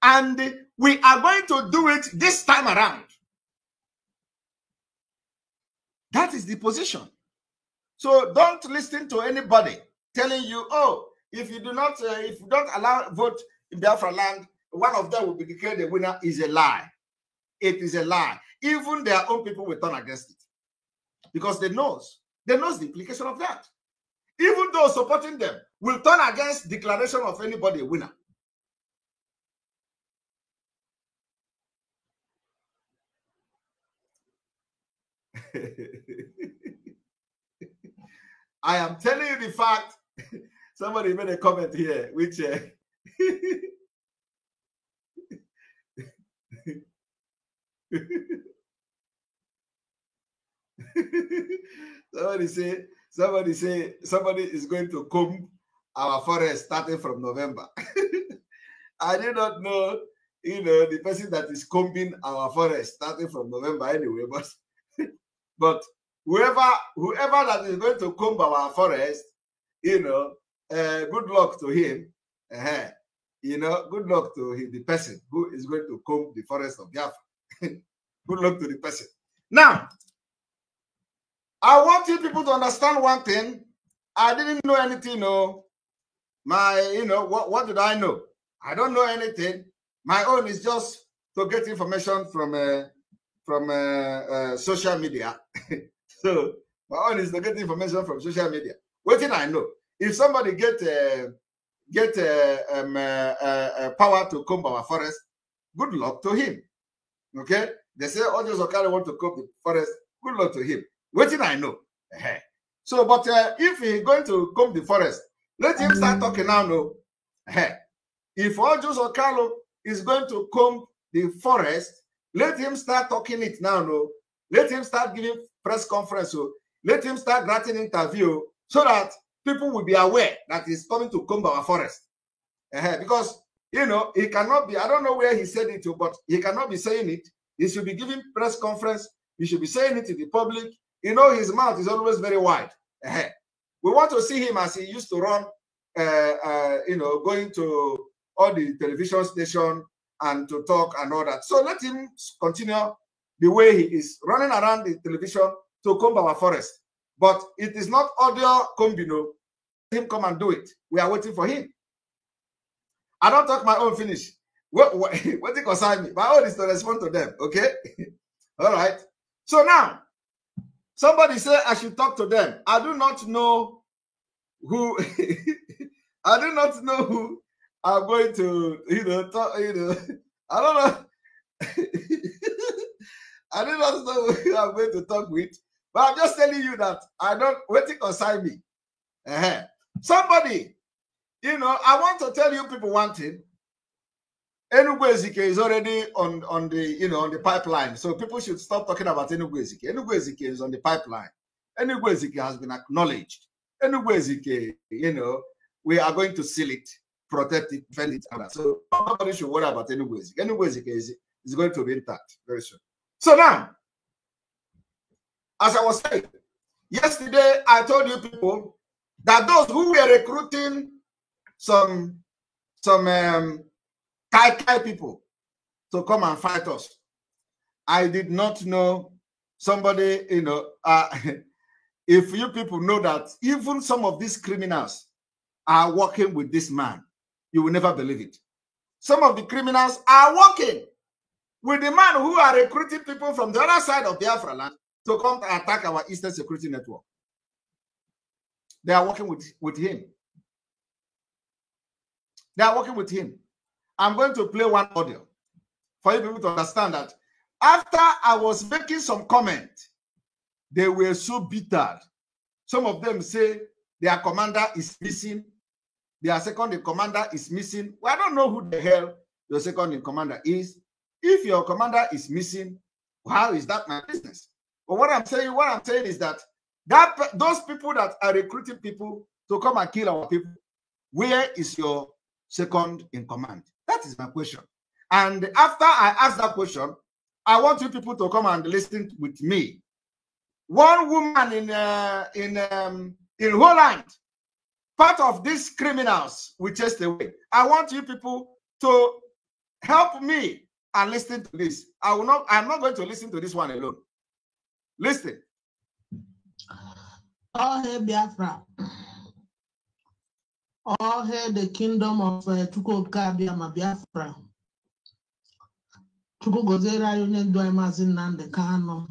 And we are going to do it this time around. That is the position. So don't listen to anybody telling you, oh, if you do not, uh, if you don't allow vote in Biafra land, one of them will be declared the winner is a lie. It is a lie. Even their own people will turn against it because they knows they knows the implication of that. Even those supporting them will turn against declaration of anybody a winner. I am telling you the fact. Somebody made a comment here, which uh, somebody say somebody say somebody is going to comb our forest starting from November. I do not know, you know, the person that is combing our forest starting from November anyway, but but whoever whoever that is going to comb our forest, you know, uh, good luck to him. Uh, you know, good luck to him, the person who is going to comb the forest of Biafra. good luck to the person. Now, I want you people to understand one thing. I didn't know anything. No, my, you know, what, what did I know? I don't know anything. My own is just to get information from uh, from uh, uh, social media. so my own is to get information from social media. What did I know? If somebody get uh, get uh, um, uh, uh, power to comb our forest, good luck to him. Okay, they say all oh, those Okari want to comb the forest. Good luck to him. What did I know? so, but if he going to comb the forest, let him start talking now. No, if all those Okalo is going to comb the forest, Let him start talking it now, no. Let him start giving press conference, oh. Let him start granting interview oh, so that people will be aware that he's coming to comb forest. Uh -huh. Because, you know, he cannot be, I don't know where he said it to, oh, but he cannot be saying it. He should be giving press conference. He should be saying it to the public. You know, his mouth is always very wide. Uh -huh. We want to see him as he used to run, uh, you know, going to all the television station and to talk and all that. So let him continue the way he is running around the television to comb our forest. But it is not audio combino. Let him come and do it. We are waiting for him. I don't talk my own finish. What, what, what it concern me? My own is to respond to them. Okay. All right. So now, somebody say I should talk to them. I do not know who. I do not know who I'm going to, you know, talk, you know, I don't know. I don't know who I'm going to talk with, but I'm just telling you that I don't waiting consign me. Uh-huh. Somebody, you know, I want to tell you people one thing. Enugu Ezike is already on, on the you know on the pipeline, so people should stop talking about Enugu Ezike. Enugu Ezike is on the pipeline. Enugu Ezike has been acknowledged. Enugu Ezike, you know, we are going to seal it protect it, defend it. So nobody should worry about any ways. Any ways is, is going to be intact very soon. So now, as I was saying, yesterday I told you people that those who were recruiting some some um, Kai Kai people to come and fight us, I did not know somebody, you know, uh, if you people know that even some of these criminals are working with this man You will never believe it. Some of the criminals are working with the man who are recruiting people from the other side of Biafra land to come and attack our Eastern Security Network. They are working with, with him. They are working with him. I'm going to play one audio for you people to understand that after I was making some comment, they were so bitter. Some of them say their commander is missing their second in commander is missing. Well, I don't know who the hell your second in commander is. If your commander is missing, how is that my business? But what I'm saying, what I'm saying is that that those people that are recruiting people to come and kill our people, where is your second in command? That is my question. And after I ask that question, I want you people to come and listen with me. One woman in uh, in um, in Holland part of these criminals we chased away. I want you people to help me and listen to this. I will not, I'm not going to listen to this one alone. Listen. All hail Biafra. All hail the kingdom of uh, Chukwuka Biama Biafra. Chukwu gọziere anyị onye ndu anyị maazị Nnamdi Kanu.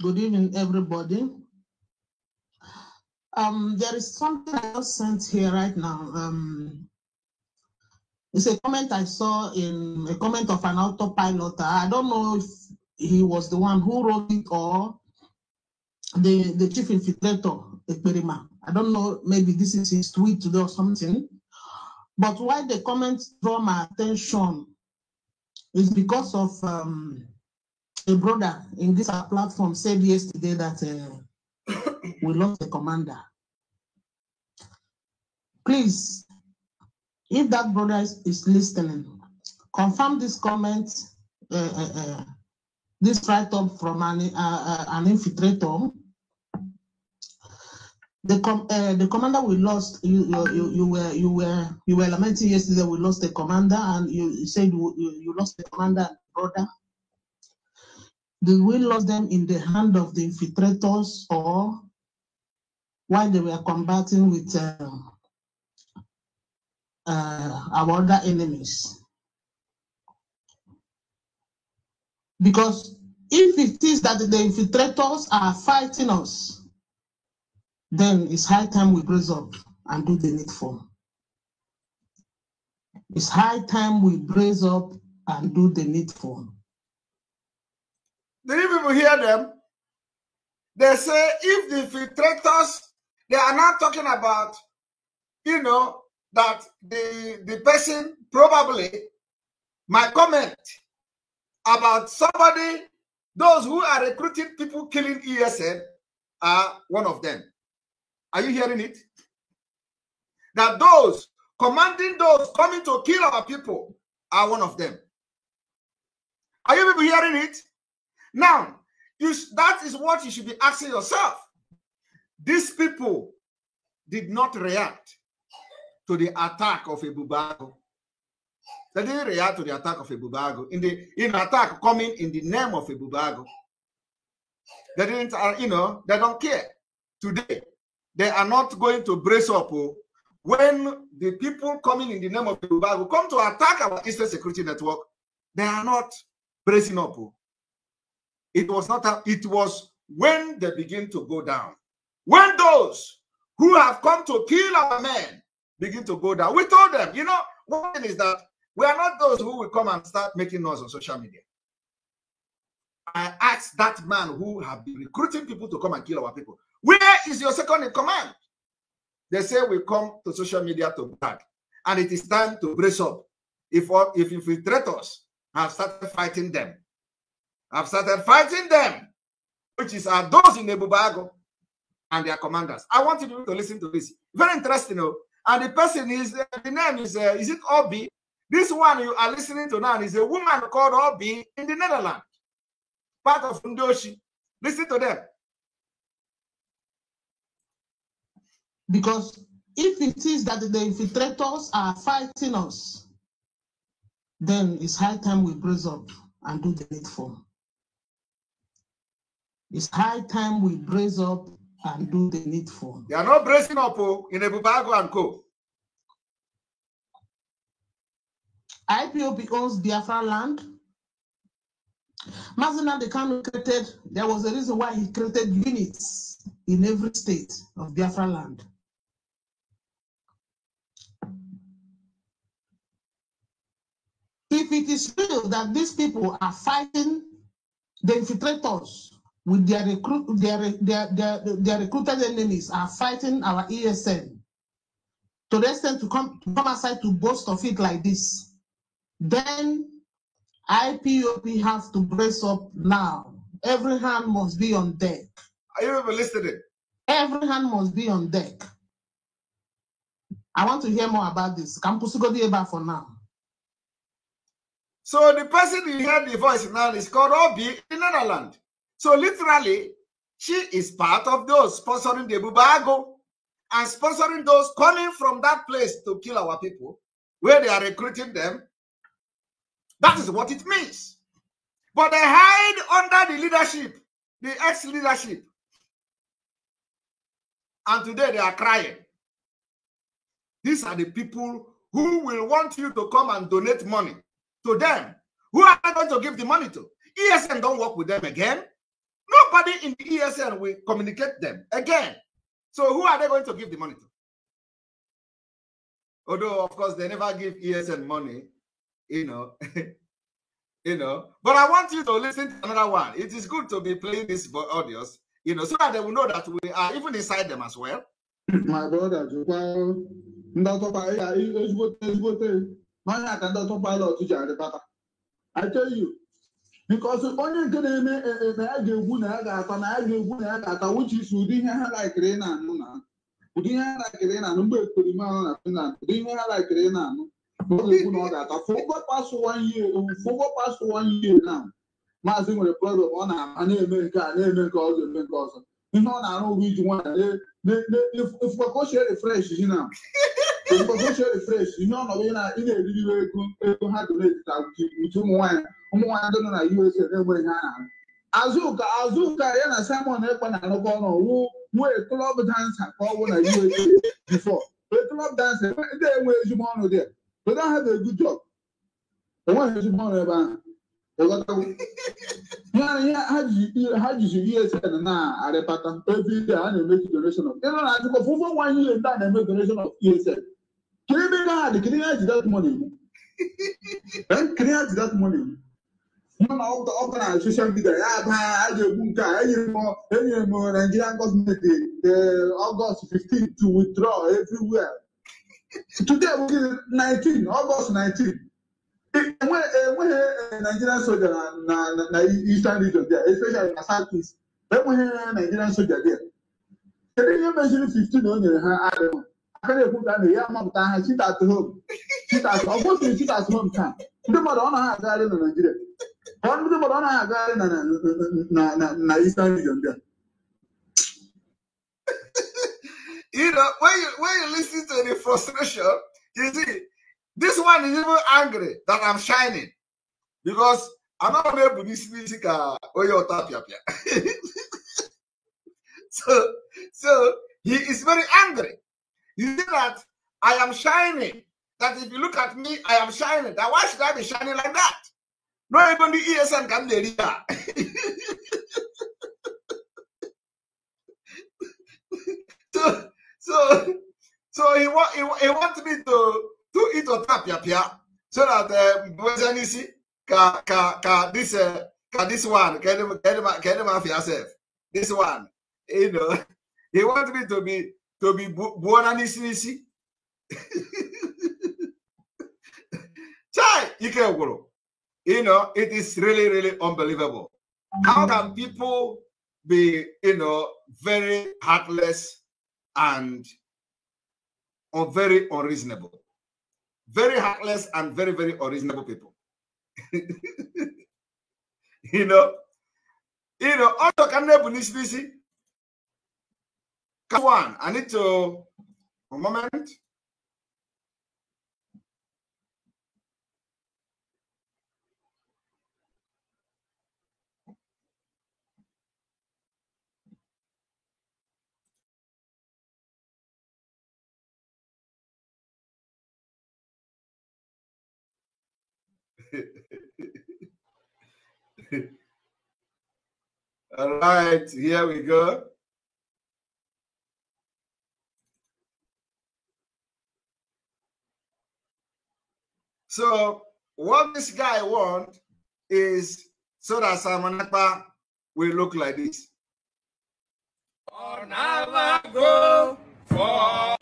good evening everybody. Um, there is something I just sent here right now. Um, it's a comment I saw in a comment of an autopilot. I don't know if he was the one who wrote it or the, the chief infiltrator, Ekperima. I don't know, maybe this is his tweet today or something. But why the comments draw my attention is because of um, a brother in this platform said yesterday that uh, we lost the commander. Please, if that brother is, listening, confirm this comment, uh, uh, uh, this write-up from an, uh, uh, an infiltrator. The, com uh, the commander we lost, you, you, you, were you were you were lamenting yesterday. We lost the commander, and you said you, you lost the commander brother. Did we lose them in the hand of the infiltrators or while they were combating with uh, uh, our other enemies? Because if it is that the infiltrators are fighting us, then it's high time we brace up and do the needful. It's high time we brace up and do the needful. Do you people hear them? They say if the filtrators, they are not talking about, you know, that the, the person probably my comment about somebody, those who are recruiting people killing ESN are one of them. Are you hearing it? That those commanding those coming to kill our people are one of them. Are you people hearing it? Now, you that is what you should be asking yourself. These people did not react to the attack of a Bubago. They didn't react to the attack of a Bubago in the in attack coming in the name of a Bubago. They didn't, uh, you know, they don't care. Today, they are not going to brace up oh, when the people coming in the name of Bubago come to attack our Eastern Security Network. They are not bracing up. Oh. It was not, a, it was when they begin to go down. When those who have come to kill our men begin to go down, we told them, you know, one thing is that we are not those who will come and start making noise on social media. I asked that man who have been recruiting people to come and kill our people, where is your second in command? They say we come to social media to brag, and it is time to brace up. If if infiltrators have started fighting them, I've started fighting them, which is are those in Bago and their commanders. I want you to listen to this. Very interesting. You oh. And the person is, uh, the name is, uh, is it Obi? This one you are listening to now is a woman called Obi in the Netherlands, part of Ndoshi. Listen to them. Because if it is that the infiltrators are fighting us, then it's high time we brace up and do the needful. It's high time we brace up and do the needful. They are not bracing up oh, in Ebubago and Co. IPOB owns Biafra land. Mazina Dekano created, there was a reason why he created units in every state of Biafra land. If it is true that these people are fighting the infiltrators with their, recruit, their, their, their, their recruited enemies are fighting our ESN. To the extent to come, to come aside to boast of it like this, then IPOP has to brace up now. Every hand must be on deck. Are you ever listening? Every hand must be on deck. I want to hear more about this. Campus go for now. So the person you heard the voice now is called Obi in Netherlands. So literally, she is part of those sponsoring the Bubago and sponsoring those coming from that place to kill our people, where they are recruiting them. That is what it means. But they hide under the leadership, the ex-leadership. And today they are crying. These are the people who will want you to come and donate money to them. Who are they going to give the money to? ESN don't work with them again. Nobody in the ESN will communicate them again. So who are they going to give the money to? Although, of course, they never give ESN money, you know. you know, but I want you to listen to another one. It is good to be playing this for audios, you know, so that they will know that we are even inside them as well. My brother, well, I tell you, porque onye nke na-eme na ya ga-egwu na ya ga-ata na ya ga-egwu na ya ga-ata which is ụdị ihe ha laikiri na-anụ na ụdị ihe ha laikiri na-anụ mgbe ekperima anụ na Finland ụdị ihe ha laikiri na-anụ na ọ ga oh, na maazị nwere ọ na-ama na-eme nke a na-eme nke ọzọ eme nke ọzọ ihe ọ na-arụ ụgwọ iji nwaanyị na ka o chie refresh na mgbe oche refresh ihe ọnọdụ ị na ha ndị na USA na azụka azụka ya na Simon Ekpa na-arụkọ ọnụ wu nwee klọb dansa ka ọ bụ na USA klọb dansa ndị enwe ezigbo ọnụ dị they don't a enweghị ezigbo ọnụ ebe ahụ ha jizi USN na arịpata ebe a na-eme donation of na-ajụkọ fụfụ nwaanyị ile na-eme donation of USN that? the criminal is that money then criminal is that money mana ọ bụla na soshal midia I do a ga-egbu nke a enyere m nigerian gọọmenti eh, eh, August 15 to withdraw everywhere today bụ 19 August 19 enweghị eh, nigerian soldier na eastern region there especially na southeast enweghị nigerian soldier there can you imagine 15 o nyere ha ya na na Eastern region there. You know, when you when you listen to the frustration, you see, this one is even angry that I'm shining because I'm not able to see music onye uh, ọta So so he is very angry. You see that I am shining. That if you look at me, I am shining. That why should I be shining like that? Not even the ESN can be here. so, so, so he, want he, he wants me to to eat or tap ya pia so that um, you see ka ka ka this uh, ka this one can him can him can him have yourself this one you know he wants me to be to Tobi, buona this nisi. Chai, Ikeguro. You know, it is really, really unbelievable. How can people be, you know, very heartless and or very unreasonable? Very heartless and very, very unreasonable people. you know, you know, auto can never Come on, I need to. a moment. All right, here we go. So what this guy want is so that Simon Akpa will look like this. go for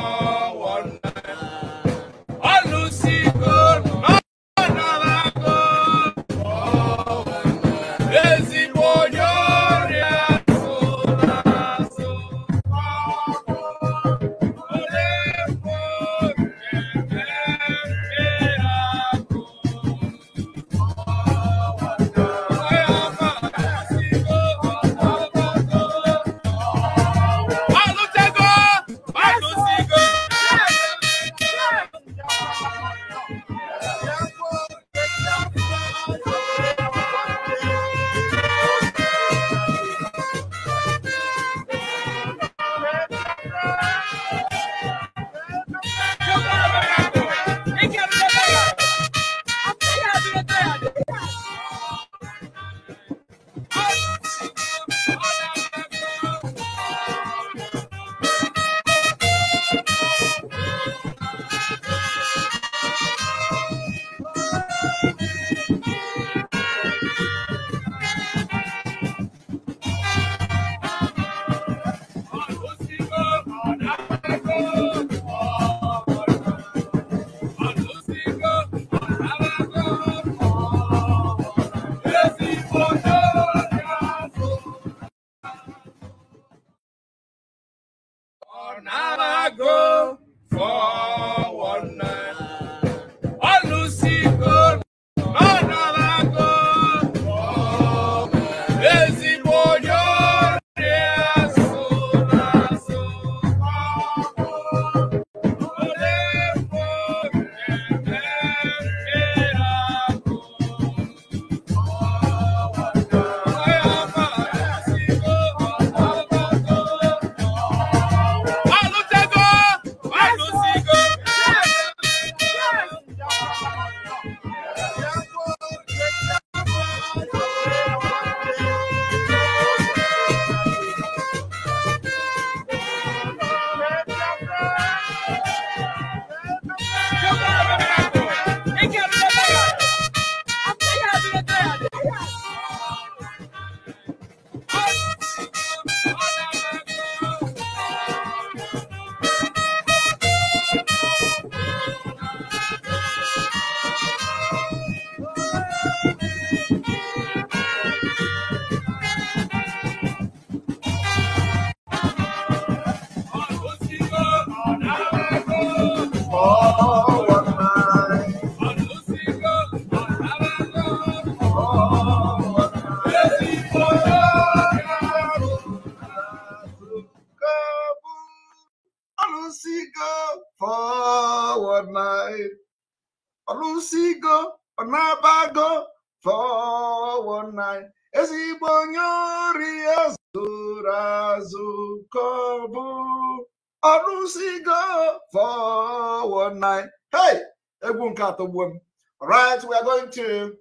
the womb. All right, we are going to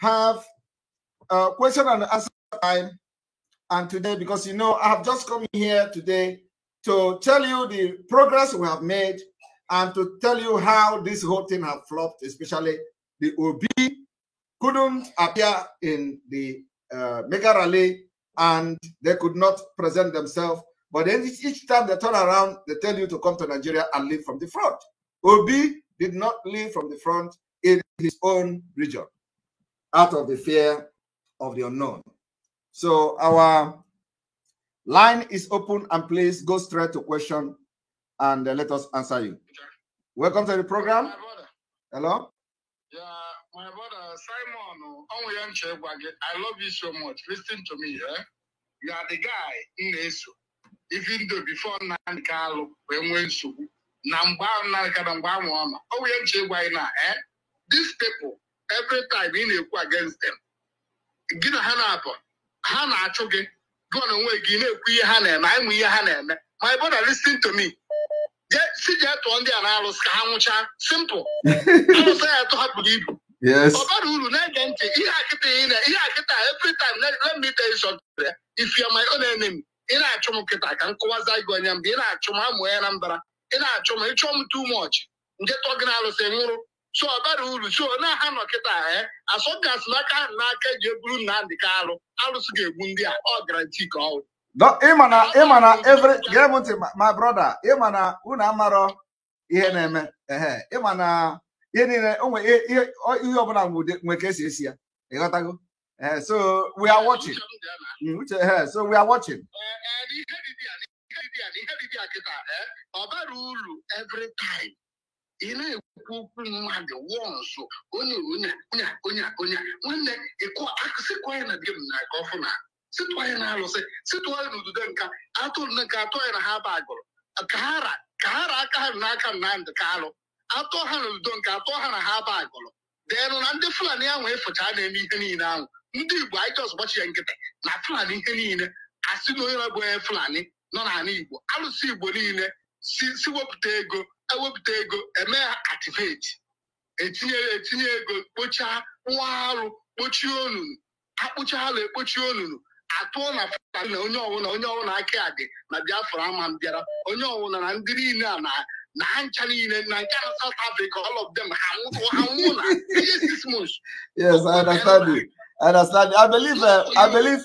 have a question and answer time. And today, because you know, I have just come here today to tell you the progress we have made and to tell you how this whole thing has flopped, especially the OB couldn't appear in the uh, mega rally and they could not present themselves. But then each time they turn around, they tell you to come to Nigeria and leave from the front. Obi did not leave from the front in his own region out of the fear of the unknown. So our line is open and please go straight to question and uh, let us answer you. Welcome to the program. Hello? Yeah, my brother Simon, I love you so much. Listen to me, eh? You are the guy in Even though before Nan Carlo, when we na mgbe ahụ na nkata mgbe ahụ ọ nọ onwe ya nche gwa anyị na eh, these people every time ị na-ekwu against them gị na ha na-abụ ha na-achụ gị gụọ na onwe gị na-ekwu ihe ha na-eme anyị nwe ihe ha na-eme my brother listen to me si jee tụọ ndị a na-arụsị ka ha nwụchaa simple arụsị ya atụ hapụrụ ibu ọ bara uru na-ege ntị ihe akịta ihe akịta every time let me tell you something if you are my own enemy ị na-achụ m kịta ka m kụwaza gị onye mgbe ị na-achụ m amụọ ya na mbara ị na-achọ m ịchọọ m too mọchị nje tọ gị na-alụsị nwụrụ so ọ bara uru so na ha nọ kịta e asọgasị n'aka ha n'aka eji eburu Nnamdị ka alụ alụsị ga-egbu ndị a ọ gara garanti ka ọ ịma na ịma na every gee m ntị my brother ịma na unu amarọ ihe na-eme ehe ịma na ihe niile onwe ihe ihe ọbụla nwe ka esi esi ya ịghọtago so we are watching mm, so we are watching eh, eh, dibịa na ihe dibịa kịta eh, ọ bara uru every ị na-ekwu okwu mmadụ wụọ nso, onye onye onye onye onye, nwanne ịkụsịkwa ya na di m na-aga ọfụna sịtụọ ya na alụsị sịtụọ ya na ududo nka atụ nke atụ ya na ha ba agụrụ ka ha ra ka ha ra aka ha n'aka na ndị ka alụ atụ ha na ududo nke atụ ha na ha ba agụrụ deenụ na ndị fulani ahụ ịfụcha e na-eme ihe niile ahụ ndị igbo anyị jọs gbachi ya nkịtị na fulani ihe niile asị na onye na-abụ onye fulani nọ n'ala Igbo alụsị Igbo niile si wepụta ego ewepụta ego eme ativeti etinye etinye ego kpochaa nwa arụ kpochie onunu akpụcha ala ekpochie onunu atụọ na fta na onye ọwụla onye ọwụla aka dị na Biafra ama m bịara onye ọwụla na ndị niile a na na ncha niile na nke na South Africa all of them ha nwụ na six months. Yes, I understand you. I understand you. I believe, uh, I believe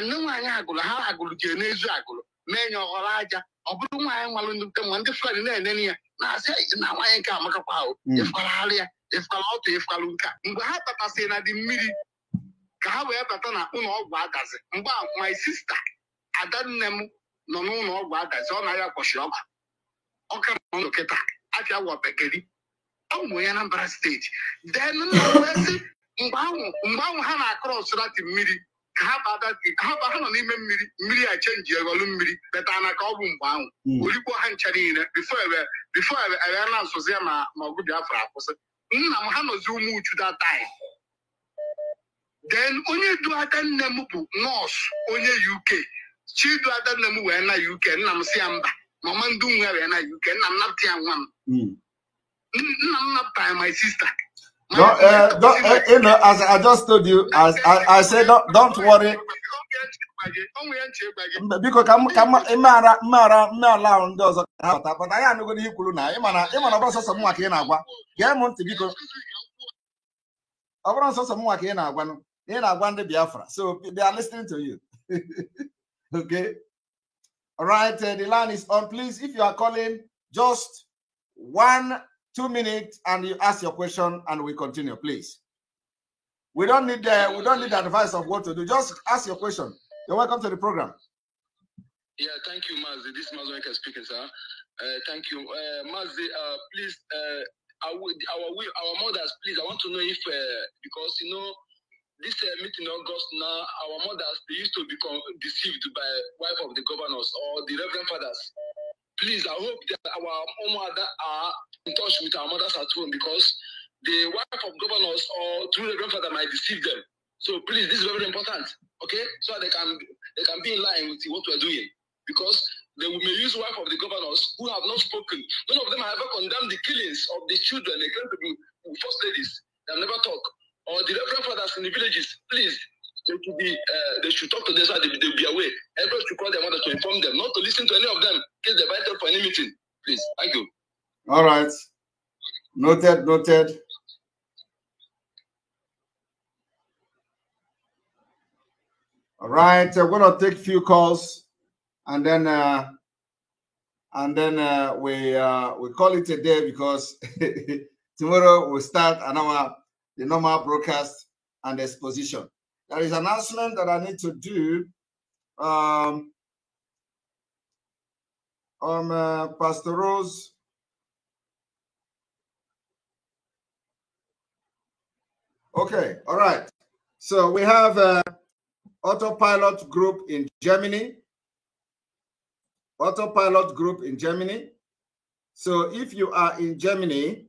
nne nwaanyị agụlụ ha agụlụ jere n'ezu agụlụ mee nye ọghọrọ aja ọ bụrụ nwaanyị nwalụ ndị nwa ndị fụkara na-enene ya na-asị na nwaanyị nke amakakwa ahụ ịfụkaragharị ya ịfụkara ọtụ ịfụkara nke mgbe ha tatasịrị na dị mmiri ka ha wee bata na ụlọ ọgwụ agazi mgbe a hmm. my sista adanne m nọ n'ụlọ ọgwụ agazi ọ na-arịa kwọchiri ọgba ọka nọ kịta afịa wọbegeri ọ mụ ya na mbara steeti den nna wee sị mgbe ahụ ha na-akọrọ ọsụrati mmiri ha ha ha nọ n'ime mmiri mmiri a chenji eghọlụ mmiri leta na ka ọ bụ mgbe ahụ hmm. orikpo ha ncha niile bifo ewere na nsozi ya ma ọgụ Biafra akwụsị nna m ha nọzi ụmụ uchu datai den onye du aka nne m bụ nọọsụ onye UK chidu ada nne m wee na UK nna m si ya mba mama ndị nwe wee na UK nna m napụta ya nwa m hmm. nna m napụta ya my sister Don't, uh, don't, uh, you know, as I just told you, as I, I said, don't, don't worry. biko ka mara mara mmeala ahụ ndị ọzọ ka ha pụta pụta ya anụgoro ihe kwuru na ịmana ịmana ị na-agwa gee m ntị biko ọ bụrụ sọsọ nwa ka ị na-agwa i so they are listening to you okay all right uh, the line is on please if you are calling just one two minutes and you ask your question and we continue, please. We don't need the we don't need the advice of what to do. Just ask your question. You're welcome to the program. Yeah, thank you, Mazi. This is Mazzy speaking, sir. Uh, thank you, uh, Mazi. Uh, please, uh, our our mothers, please. I want to know if uh, because you know this uh, meeting in August now, our mothers they used to become deceived by wife of the governors or the reverend fathers. please, I hope that our mother are in touch with our mothers at home because the wife of governors or through the grandfather might deceive them. So please, this is very important, okay? So they can they can be in line with what we're doing because they may use wife of the governors who have not spoken. None of them have ever condemned the killings of the children. They claim to be first ladies. They have never talked. Or the reverend fathers in the villages. Please, They should be, uh, they should talk to this side. they, will be away. Everyone should call their mother to inform them, not to listen to any of them. Case they vital for any meeting. Please, thank you. All right. Noted, noted. All right, uh, we're gonna take a few calls, and then uh, and then uh, we uh, we call it a day because tomorrow we start another the normal broadcast and exposition. There is an announcement that I need to do. Um, on um, uh, Pastor Rose. Okay, all right. So we have uh, Autopilot Group in Germany. Autopilot Group in Germany. So if you are in Germany,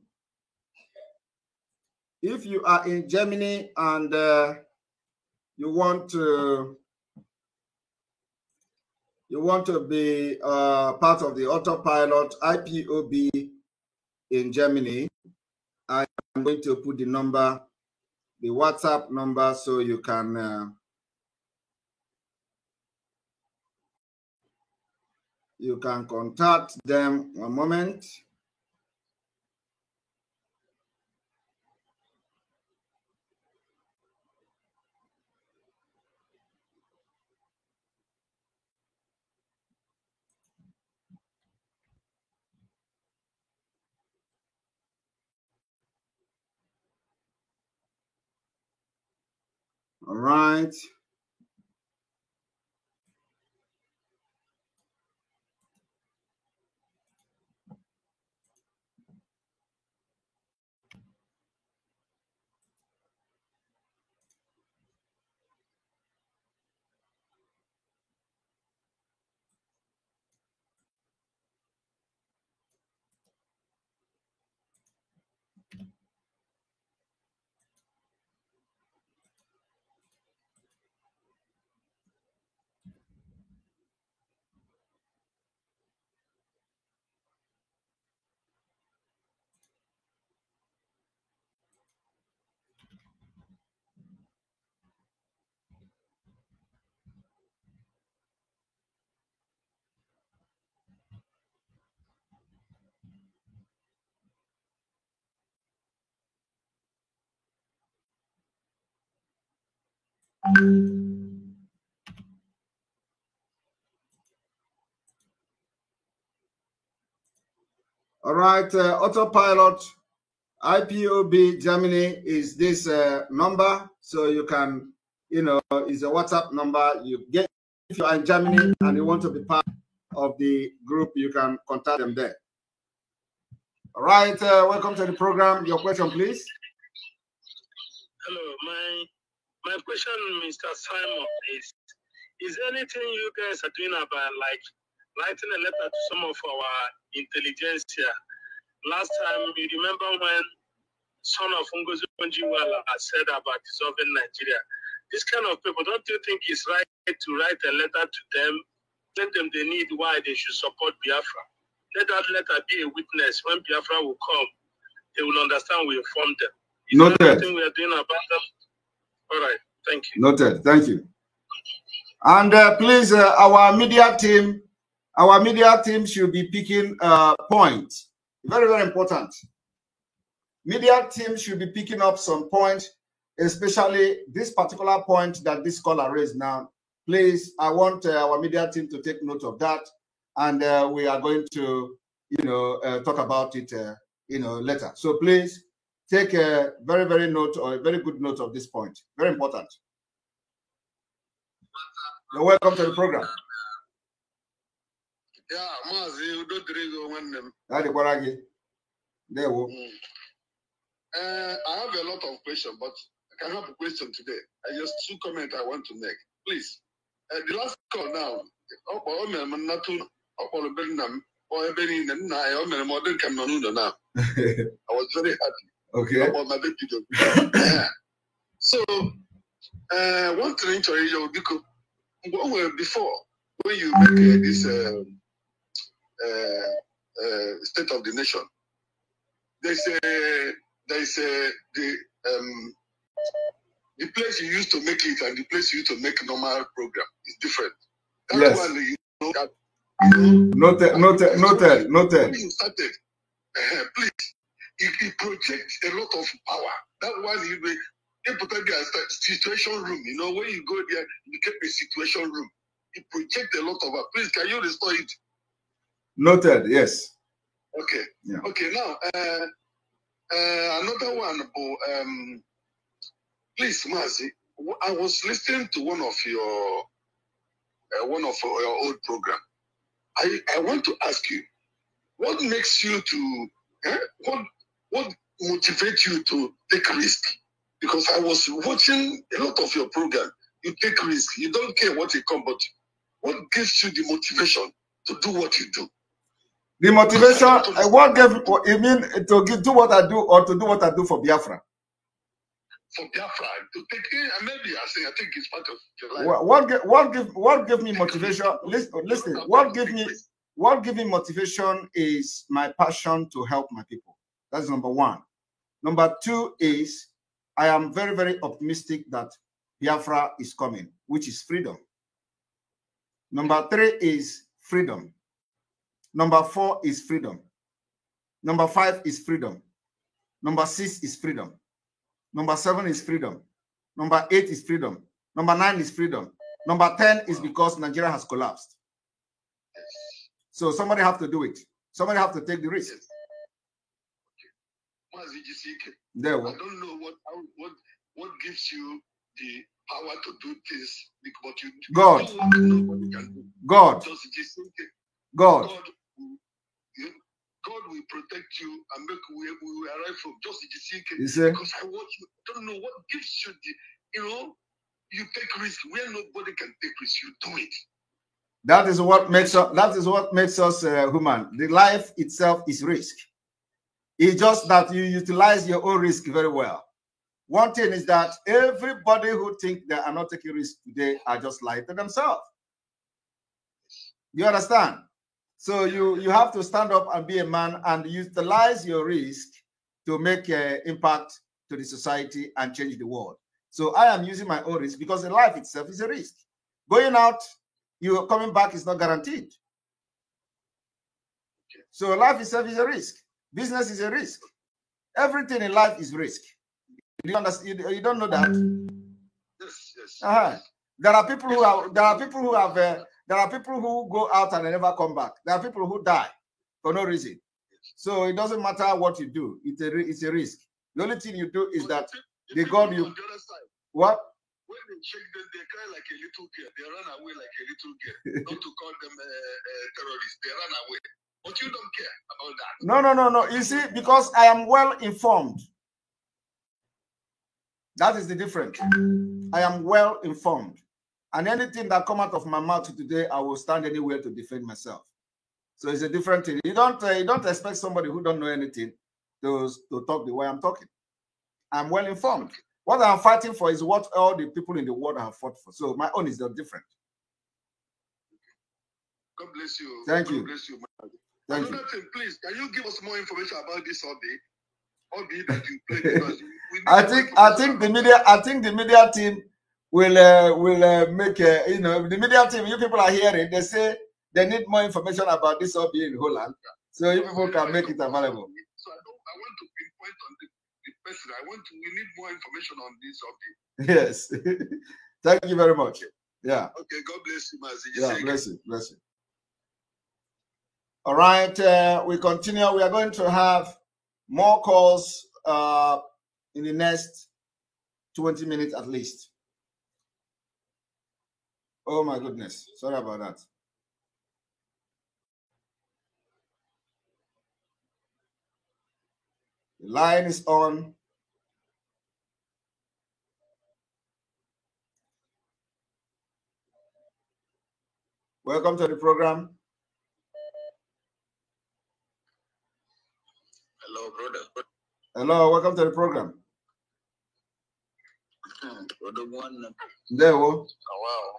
if you are in Germany and uh, you want to you want to be uh, part of the autopilot IPOB in Germany, I am going to put the number, the WhatsApp number, so you can. Uh, you can contact them one moment. All right. All right, uh, autopilot IPOB Germany is this uh, number, so you can, you know, is a WhatsApp number. You get if you are in Germany and you want to be part of the group, you can contact them there. All right, uh, welcome to the program. Your question, please. Hello, my my question, Mr. Simon, is is anything you guys are doing about like writing a letter to some of our intelligentsia? Last time, you remember when son of Ngozi Bonjiwala said about dissolving Nigeria? This kind of people, don't you think it's right to write a letter to them, tell them they need why they should support Biafra? Let that letter be a witness. When Biafra will come, they will understand we informed them. Is know that. we are doing about them? All right. Thank you. Noted. Thank you. And uh, please, uh, our media team, our media team should be picking uh, points. Very, very important. Media team should be picking up some points, especially this particular point that this caller raised now. Please, I want uh, our media team to take note of that, and uh, we are going to, you know, uh, talk about it, you know, later. So please, take a very, very note or a very good note of this point. Very important. You're welcome to the program. Yeah, you don't drink one name. That's There we mm. uh, I have a lot of questions, but I can have a question today. I just two comments I want to make. Please. Uh, the last call now. I was very happy. Okay. ọmọ bebi dọ so uh, one thing to ịyọ because mgbe before when you make uh, this um, uh, uh, state of the nation they say they say the um, the place you used to make it and the place you used to make normal program is different. That yes. one you know that. You know, noted, noted, noted, noted. You started. Uh, please it, it projects a lot of power. That one, you know, they put up their situation room. You know, when you go there, you get a situation room. It projects a lot of power. Please, can you restore it? Noted, yes. Okay. Yeah. Okay, now, uh, uh, another one, but, um, please, Mazi, I was listening to one of your uh, one of your old program. I, I want to ask you, what makes you to eh, what what motivates you to take risk? Because I was watching a lot of your program. You take risk. You don't care what it comes, but what gives you the motivation to do what you do? The motivation, I eh, what give, you mean eh, to give, do what I do or to do what I do for Biafra? For Biafra, to take in, maybe I think I think it's part of your life. What, what what give what give me motivation? Listen, listen. What give me what give me motivation is my passion to help my people. That's number one. Number two is I am very, very optimistic that Biafra is coming, which is freedom. Number three is freedom. Number four is freedom. Number five is freedom. Number six is freedom. Number seven is freedom. Number eight is freedom. Number nine is freedom. Number 10 is because Nigeria has collapsed. So somebody have to do it. Somebody have to take the risk. Jisike. There we I don't know what what what gives you the power to do this, but you God. God. God. God. God will protect you and make we will arrive from just the CK. Because I want you I don't know what gives you the you know you take risk where nobody can take risk. You do it. That is what makes us. That is what makes us uh, human. The life itself is risk. It's just that you utilize your own risk very well. One thing is that everybody who think they are not taking risk today are just lying to themselves. You understand? So you you have to stand up and be a man and utilize your risk to make an impact to the society and change the world. So I am using my own risk because life itself is a risk. Going out, you coming back is not guaranteed. So life itself is a risk. Business is a risk. Everything in life is risk. You, understand, you, don't know that. Yes, yes, uh -huh. yes. There are people who are there are people who have uh, there are people who go out and never come back. There are people who die for no reason. So it doesn't matter what you do. It's a it's a risk. The only thing you do is that the, the God you the what when they check them, they cry like a little girl. They run away like a little girl. Not to call them uh, uh terrorists. They run away. But you don't care about that. No, no, no, no. You see, because I am well informed. That is the difference. I am well informed. And anything that come out of my mouth today, I will stand anywhere to defend myself. So it's a different thing. You don't uh, you don't expect somebody who don't know anything to, to talk the way I'm talking. I'm well informed. What I'm fighting for is what all the people in the world have fought for. So my own is not different. God bless you. Thank God you. Bless you. Thank Another you. thing, please, can you give us more information about this played. I think I think the media I think the media team will uh, will uh, make uh, you know the media team you people are hearing they say they need more information about this OB in Holland so you people can make it available. So I, don't, I want to pinpoint on the, the person. I want to, we need more information on this OB. Yes, thank you very much. Yeah. Okay. God bless you, Mazi. Yeah. Bless you. Bless you. All right, uh, we continue. We are going to have more calls uh, in the next 20 minutes at least. Oh my goodness. Sorry about that. The line is on. Welcome to the program. Hello, brother. Hello, welcome to the program. Hmm, brother one. There, uh, oh. wow.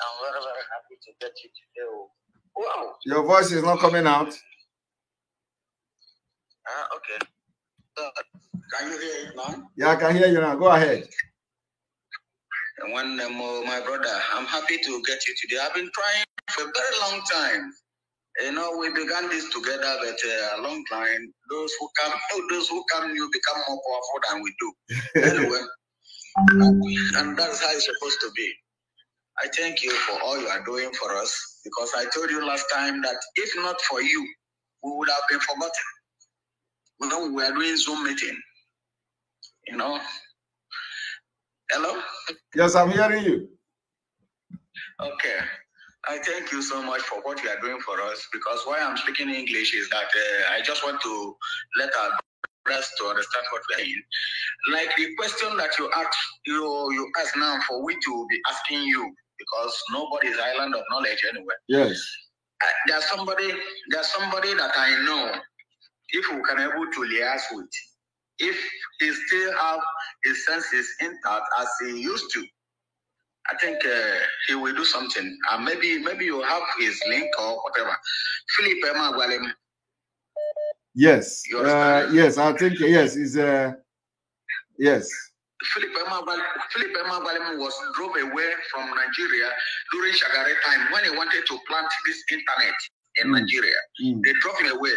I'm very, very happy to get you today. Oh. Wow. Your voice is not coming out. Ah, uh, okay. Uh, can you hear it now? Yeah, I can hear you now. Go ahead. one, um, my brother, I'm happy to get you today. I've been trying for a very long time. You know, we began this together, but uh, along the line, those who come, those who come, you become more powerful than we do. anyway, and that's how it's supposed to be. I thank you for all you are doing for us because I told you last time that if not for you, we would have been forgotten. You know, we were doing Zoom meeting. You know. Hello. Yes, I'm hearing you. Okay. I thank you so much for what you are doing for us because why I'm speaking English is that uh, I just want to let our brothers to understand what we're in. Like the question that you asked, you, you ask now for which we will be asking you because nobody is island of knowledge anywhere. Yes. Uh, there's somebody, there's somebody that I know. If we can able to liaise with, if he still have his senses intact as he used to, I think uh, he will do something. Uh, maybe maybe you have his link or whatever. Philip Emmanuel. Yes. Uh, yes, I think yes. Is uh, yes. Philip Emmanuel was drove away from Nigeria during Shagari time when he wanted to plant this internet in mm. Nigeria. Mm. They drove him away,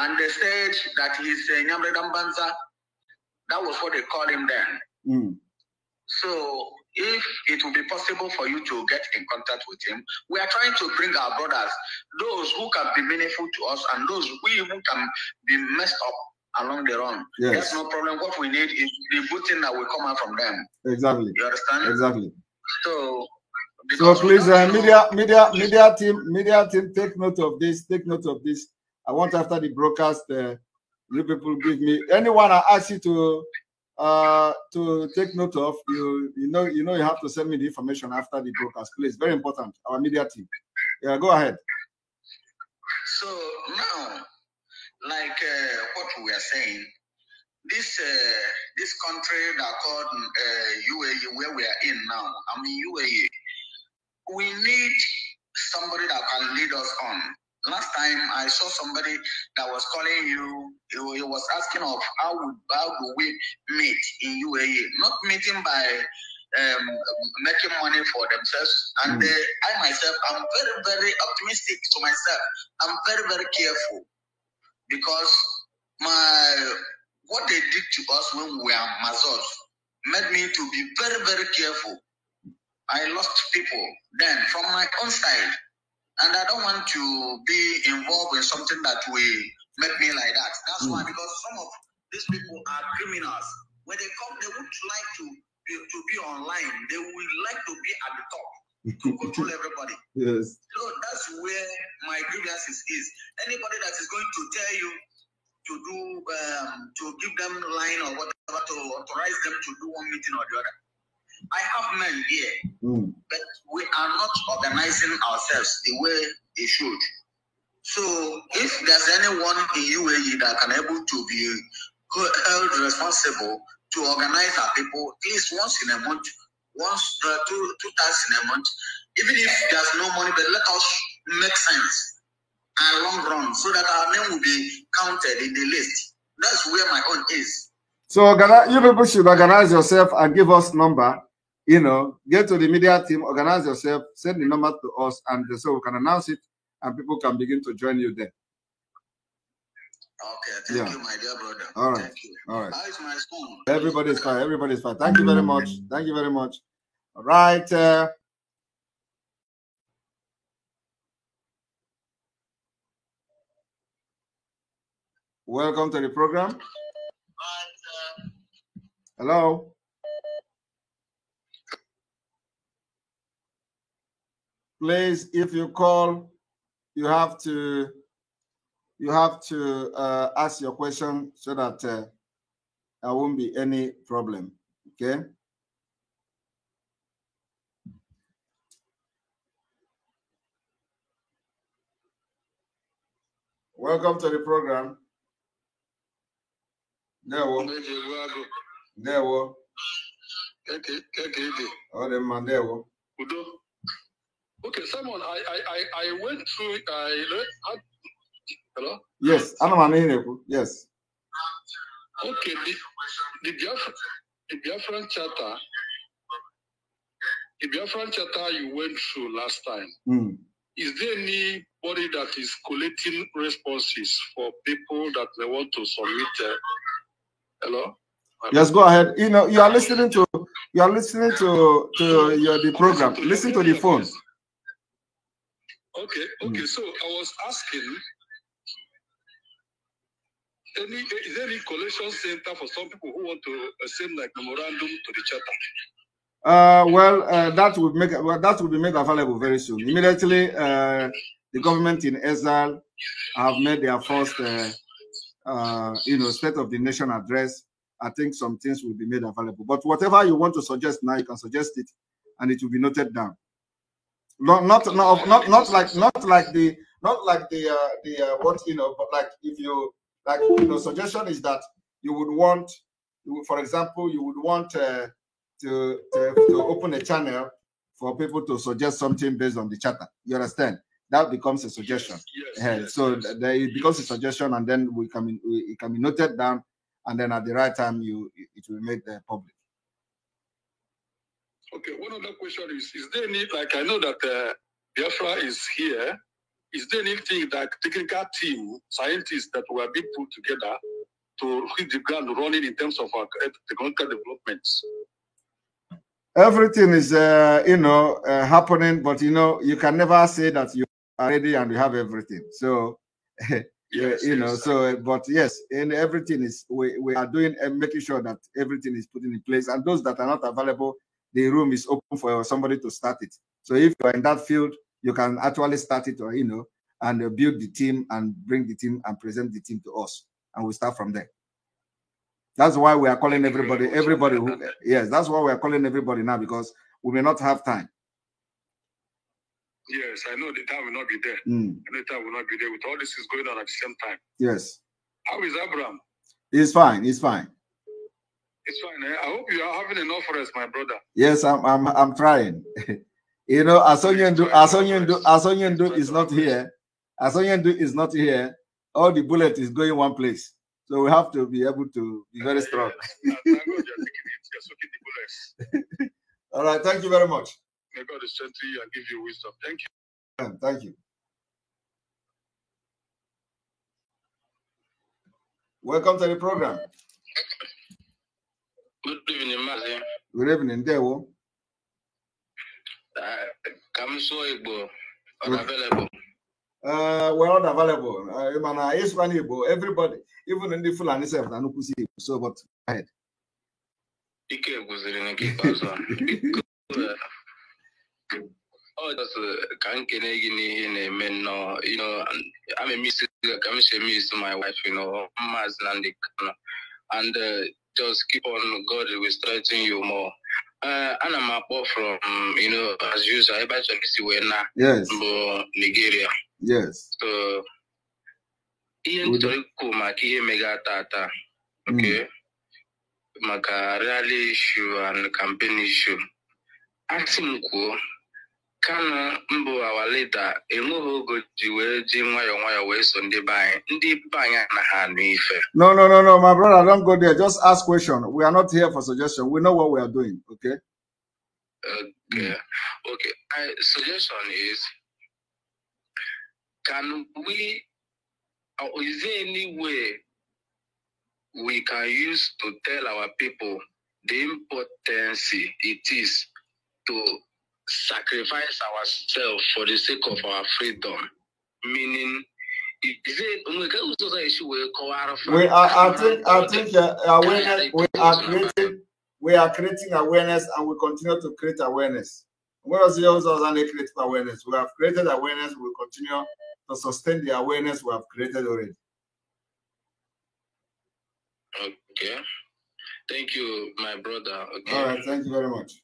and they said that he's uh, Nyamre Dambanza. That was what they called him then. Mm. So if it will be possible for you to get in contact with him, we are trying to bring our brothers, those who can be meaningful to us and those we who can be messed up along the run. Yes. no problem. What we need is the good thing that will come out from them. Exactly. You understand? Exactly. So so please, uh, media, media, media team, media team, take note of this. Take note of this. I want after the broadcast, uh, you people give me anyone I ask you to uh, to take note of. You you know you know you have to send me the information after the broadcast, please. Very important. Our media team. Yeah, go ahead. So now, like uh, what we are saying, this uh, this country that called uh, UAE, where we are in now, I mean UAE, we need somebody that can lead us on. Last time I saw somebody that was calling you he was asking of how would how do we meet in UAE? Not meeting by um, making money for themselves. And mm. uh, I myself, I'm very very optimistic to myself. I'm very very careful because my what they did to us when we were Mazos made me to be very very careful. I lost people then from my own side, and I don't want to be involved in something that we make me like that. That's mm. why, hmm. because some of these people are criminals. When they come, they would like to be, to be online. They would like to be at the top to control everybody. Yes. So that's where my grievances is. Anybody that is going to tell you to do um, to give them line or whatever to authorize them to do one meeting or the other. I have men here, mm. but we are not organizing ourselves the way they should. So if there's anyone in UAE that can able to be held responsible to organize our people at least once in a month, once uh, two two times in a month, even if there's no money, but let us make sense and long run so that our name will be counted in the list. That's where my own is. So you people should organize yourself and give us number. You know, get to the media team, organize yourself, send the number to us, and so we can announce it and people can begin to join you there. Okay, thank yeah. you, my dear brother. All right. All right. How is my Everybody's fine. Everybody's fine. Thank you very much. Thank you very much. All right. Uh, welcome to the program. Hello. Please, if you call you have to you have to uh, ask your question so that uh, there won't be any problem. Okay. Welcome to the program. There we There we Okay, there Okay, Simon, I I I went through. I learned. I, hello. Yes, Anamani Yes. Okay, the the Biafran, the Biafran charter, the Biafran charter you went through last time. Mm. Is there anybody that is collecting responses for people that they want to submit? Uh, hello. Yes, go ahead. You know, you are listening to you are listening to to your, the program. Listen to the phone. Okay, okay. Mm. So I was asking any eh, is there any collection center for some people who want to uh, send like memorandum to the chapter? Uh, well, uh, that will make well, that will be made available very soon. Immediately, uh, the government in Israel have made their first, uh, uh, you know, state of the nation address. I think some things will be made available. But whatever you want to suggest now, you can suggest it, and it will be noted down. Not not not not, like not like the not like the uh, the uh, what you know, but like if you like you know, suggestion is that you would want, for example, you would want uh, to, to to open a channel for people to suggest something based on the chatter. You understand? That becomes a suggestion. Yes, yes, yeah. yes, so it becomes a suggestion, and then we can we, it can be noted down, and then at the right time you it will make the public. Okay, one other question is Is there any, like, I know that uh, Biafra is here. Is there anything that technical team, scientists that were being put together to hit the ground running in terms of our uh, technical developments? Everything is, uh, you know, uh, happening, but you know, you can never say that you are ready and you have everything. So, eh, yes, you know, yes, so, but yes, and everything is, we, we are doing and uh, making sure that everything is put in place. And those that are not available, the room is open for somebody to start it. So if you're in that field, you can actually start it or, you know, and uh, build the team and bring the team and present the team to us. And we start from there. That's why we are calling everybody, everybody who, yes, that's why we are calling everybody now because we may not have time. Yes, I know the time will not be there. Mm. the time will not be there. With all this is going on at the same time. Yes. How is Abraham? He's fine. He's fine. It's fine. Eh? I hope you are having enough rest, my brother. Yes, I'm. I'm. I'm trying. you know, Asonyendu, Asonyendu, Asonyendu is not here. Asonyendu is not here. All the bullet is going one place. So we have to be able to be very eh, strong. All right. Thank you very much. May God strengthen you and give you wisdom. Thank you. Thank you. Welcome to the program. Good evening, Maazị. Eh? Good evening, ndewo. Ka m Igbo, unavailable. na available. Uh, well, ọ na available. Uh, Mana uh, ịsụkwa Igbo, everybody, even ndị Fulani sef na nnukwu si Igbo, so but go ahead. Ike gwụziri nke ikpeazụ ọ jọsụ ka m kene gị n'ihe na-eme nnọọ amemisi ka m si eme isi my wife, you know, Maazị na ndị Kano. And uh, just keep on God will strengthen you more. Uh, ana m akpọ from you know as usual ebe achọrọ isi wee Nigeria yes so ihe nchọrọ ikwu ihe mega tata hmm. okay maka rally issue and campaign issue asị m kwuo kanu mbụ awa enweghị ogo ji wee ji nwayọ nwayọ wee so ndị be anyị ndị be anyị anaghị anụ ife no no no no my brother don't go there just ask question we are not here for suggestion we know what we are doing okay okay hmm. okay I, suggestion is can we or is there any way we can use to tell our people the importance it is to sacrifice ourselves for the sake of our freedom. Meaning, is it we are, I think, I think awareness, we are creating, we are creating awareness, and we continue to create awareness. Where is the oh, an created awareness? We have created awareness. We continue to sustain the awareness we have created already. Okay. Thank you, my brother. Okay. All right. Thank you very much.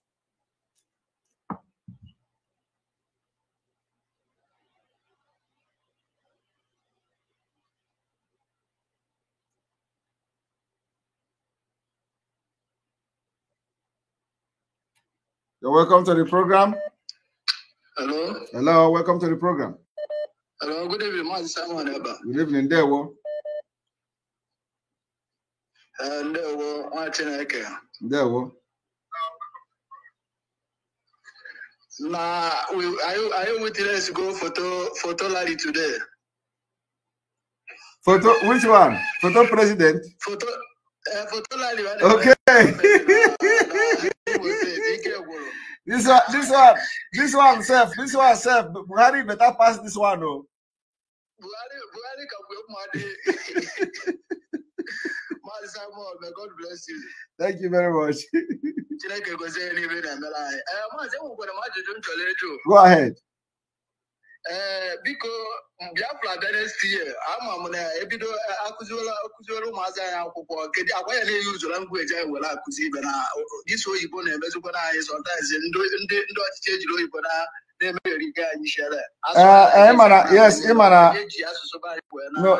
You're welcome to the program. Hello. Hello, welcome to the program. Hello, good evening, Mazi Simon Eba. Good evening, Dewo. Ndewo, uh, nwa Chineke. Ndewo. Na, are you to go photo photo lady today? Photo, which one? Photo president? Photo, uh, photo lady. Okay. This one, this one, this one, self, this one, self. Buhari better pass this one, oh. Buhari, Buhari can block money. Man, Simon, may God bless you. Thank you very much. Go ahead ee eh, biko biafra bịa next year ama na ebido akụziela akụziela ụmụazị anyị akwụkwọ kedu agwa ya na-eyi usoro ngweji anyị were akụzi ibe na dịso oyibo na-emezikwana anyị sọntaịz ndị ọchịchị ejiri oyibo na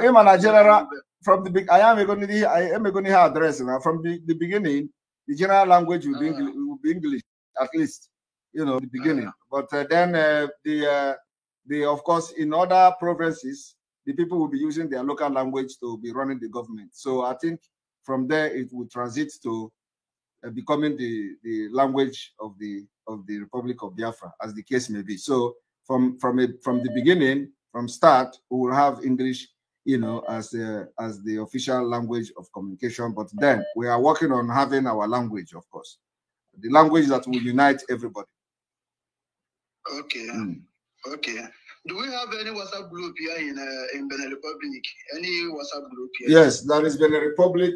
ịmana I am emegoni ihe address na from the, beginning the general language ah. will be, English, at least you know the beginning ah. but eh, then eh, the they, of course, in other provinces, the people will be using their local language to be running the government. So I think from there it will transit to uh, becoming the, the language of the of the Republic of Biafra, as the case may be. So from from a, from the beginning, from start, we will have English, you know, as a, as the official language of communication. But then we are working on having our language, of course, the language that will unite everybody. Okay. Mm. Okay. Do we have any WhatsApp group here in uh, in Benin Republic? Any WhatsApp group here? Yes, there is Benin Republic.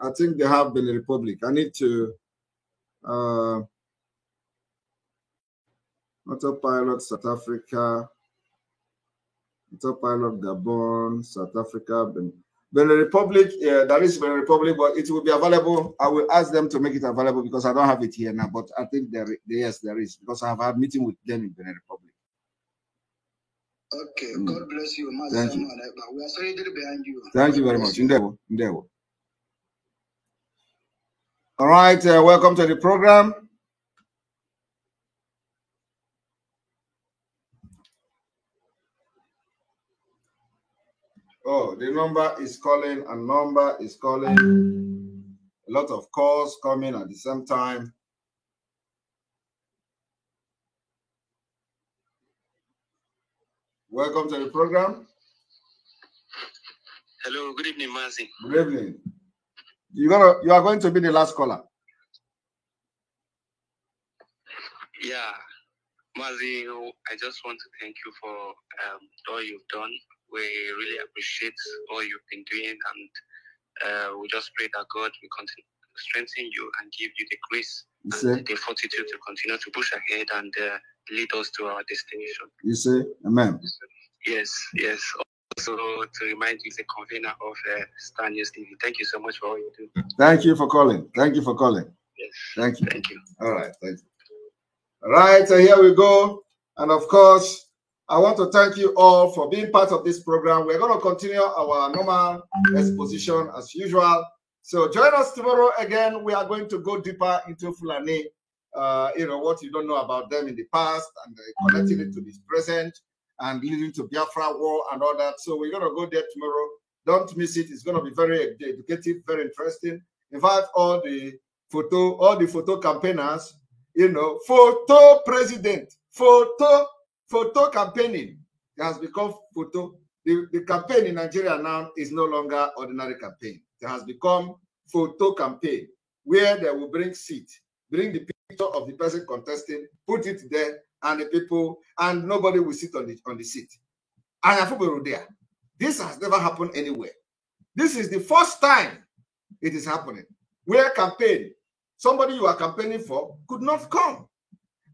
I think they have Benin Republic. I need to. Uh, Autopilot South Africa. Autopilot Gabon, South Africa, Benin. Benin Republic, yeah, there is Benin Republic, but it will be available. I will ask them to make it available because I don't have it here now. But I think there, yes, there is because I have had meeting with them in Benin Republic. Okay, mm. God bless you. Thank you. We are sorry behind you. Thank you very much. Indebo. Indebo. All right, uh, welcome to the program. Oh, the number is calling, a number is calling. A lot of calls coming at the same time. Welcome to the program. Hello, good evening, Mazi. Good evening. You're gonna, you are going to be the last caller. Yeah, Mazi, I just want to thank you for um, all you've done. We really appreciate all you've been doing, and uh, we just pray that God will continue strengthen you and give you the grace and the fortitude to continue to push ahead and. Uh, lead us to our destination. You say, Amen. Yes, yes. Also, to remind you, the convener of uh, Star News TV. Thank you so much for all you do. Thank you for calling. Thank you for calling. Yes. Thank you. Thank you. All right. Thank you. All right. So here we go. And of course, I want to thank you all for being part of this program. We're going to continue our normal exposition as usual. So join us tomorrow again. We are going to go deeper into Fulani uh, you know, what you don't know about them in the past and uh, connecting it to this present and leading to Biafra war and all that. So we're going to go there tomorrow. Don't miss it. It's going to be very educative, very interesting. In fact, all the photo, all the photo campaigners, you know, photo president, photo, photo campaigning it has become photo. The, the campaign in Nigeria now is no longer ordinary campaign. It has become photo campaign where they will bring seat, bring the picture of the person contesting, put it there, and the people, and nobody will sit on the on the seat. And Afubero there. This has never happened anywhere. This is the first time it is happening. Where campaign, somebody you are campaigning for could not come.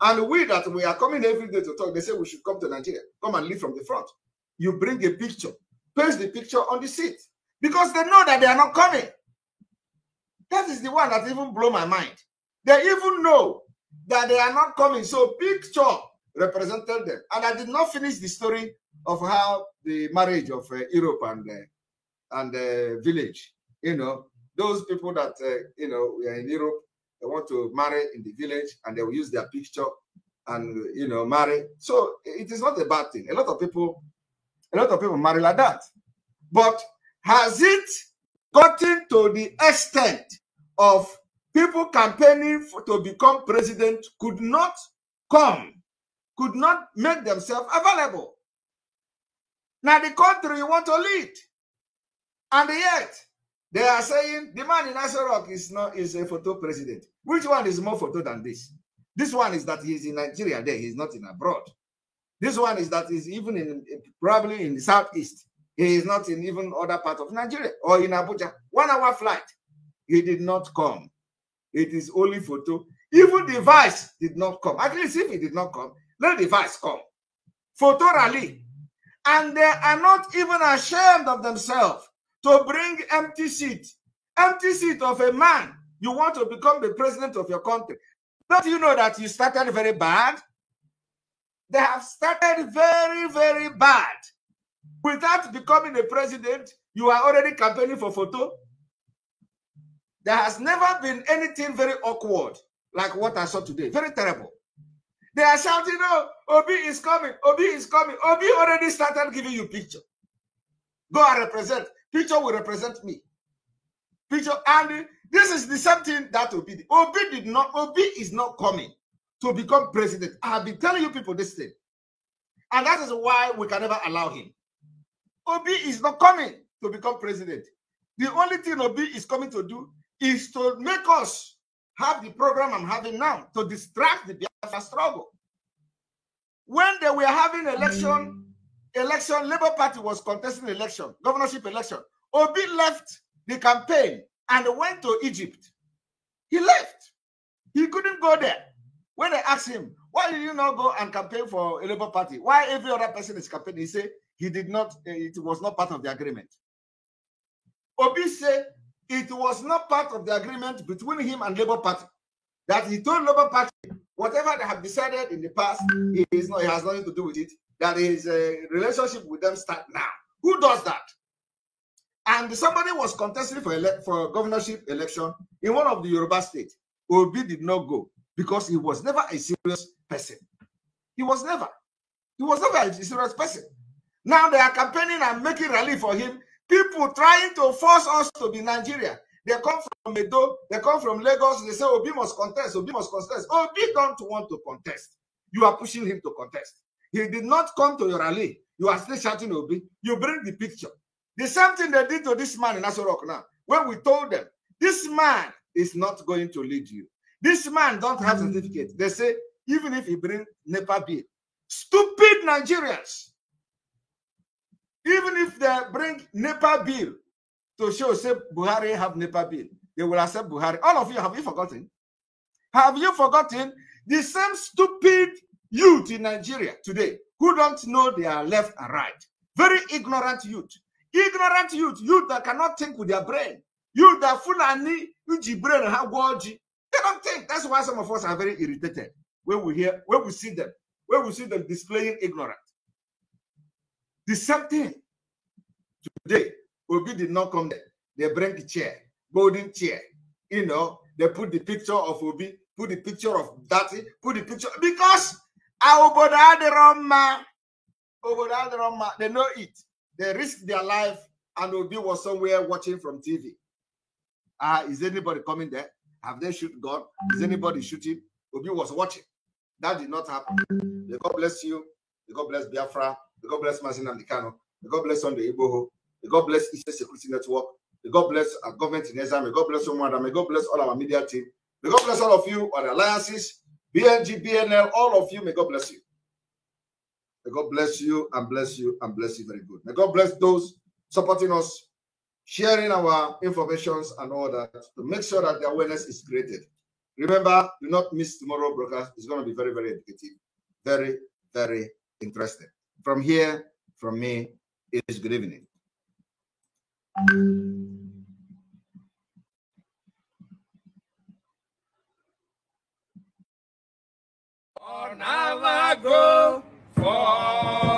And we that we are coming every day to talk, they say we should come to Nigeria, come and lead from the front. You bring a picture, paste the picture on the seat because they know that they are not coming. That is the one that even blow my mind. They even know that they are not coming. So picture represented them. And I did not finish the story of how the marriage of uh, Europe and the, uh, and the uh, village, you know, those people that uh, you know we are in Europe, they want to marry in the village and they will use their picture and you know marry. So it is not a bad thing. A lot of people, a lot of people marry like that. But has it gotten to the extent of people campaigning for, to become president could not come, could not make themselves available. Now the country you want to lead. And yet, they are saying the man in Asarok is not is a photo president. Which one is more photo than this? This one is that he's in Nigeria there, he's not in abroad. This one is that he's even in probably in the southeast. He is not in even other part of Nigeria or in Abuja. One hour flight. He did not come. It is only for two. Even the vice did not come. At least if it did not come, let the vice come. Photo rally. And they are not even ashamed of themselves to bring empty seat. Empty seat of a man. You want to become the president of your country. Don't you know that you started very bad? They have started very, very bad. Without becoming a president, you are already campaigning for photo. There has never been anything very awkward like what I saw today. Very terrible. They are shouting, oh, Obi is coming, Obi is coming. Obi already started giving you picture. Go and represent. Picture will represent me. Picture, and this is the same thing that Obi did. Obi did not, Obi is not coming to become president. I have been telling you people this thing. And that is why we can never allow him. Obi is not coming to become president. The only thing Obi is coming to do is to make us have the program I'm having now to distract the Biafra struggle. When they were having election, election, Labour Party was contesting election, governorship election. Obi left the campaign and went to Egypt. He left. He couldn't go there. When they asked him, why did you not go and campaign for a Labour Party? Why every other person is campaigning? He said he did not, it was not part of the agreement. Obi said it was not part of the agreement between him and Labour Party that he told Labour Party whatever they have decided in the past is not, it has nothing to do with it. That his uh, relationship with them start now. Who does that? And somebody was contesting for ele- for governorship election in one of the Yoruba states. Obi did not go because he was never a serious person. He was never. He was never a serious person. Now they are campaigning and making rally for him People trying to force us to be Nigeria. They come from Medo, they come from Lagos, they say Obi must contest, Obi must contest. Obi don't want to contest. You are pushing him to contest. He did not come to your rally. You are still shouting Obi. You bring the picture. The same thing they did to this man in Asorok now. When we told them, this man is not going to lead you. This man don't have hmm. certificate. They say, even if he bring NEPA bill. Stupid Nigerians even if they bring NEPA bill to show, say, Buhari have NEPA bill, they will accept Buhari. All of you, have you forgotten? Have you forgotten the same stupid youth in Nigeria today who don't know their left and right? Very ignorant youth. Ignorant youth, youth that cannot think with their brain. Youth that Fulani, Uji brain, Hagwaji. They don't think. That's why some of us are very irritated when we hear, when we see them, when we see them displaying ignorance. The same thing. Today, Obi did not come there. They bring the chair, golden chair. You know, they put the picture of Obi, put the picture of Daddy, put the picture because obodo adịrọmma obodo adịrọmma they know it they risk their life and obi was somewhere watching from tv ah uh, is anybody coming there have they shoot god is anybody shooting obi was watching that did not happen god bless you god bless biafra May God bless Mazin Amdikano. May God bless Sunday Iboho. May God bless Eastern Security Network. May God bless our government in Ezra. May God bless Rwanda. May God bless all our media team. May God bless all of you, our alliances, BNG, BNL, all of you. May God bless you. May God bless you and bless you and bless you very good. May God bless those supporting us, sharing our informations and all that to make sure that the awareness is created. Remember, do not miss tomorrow broadcast. It's going to be very, very educative, very, very interesting. From here, from me, it is good evening. now I go for.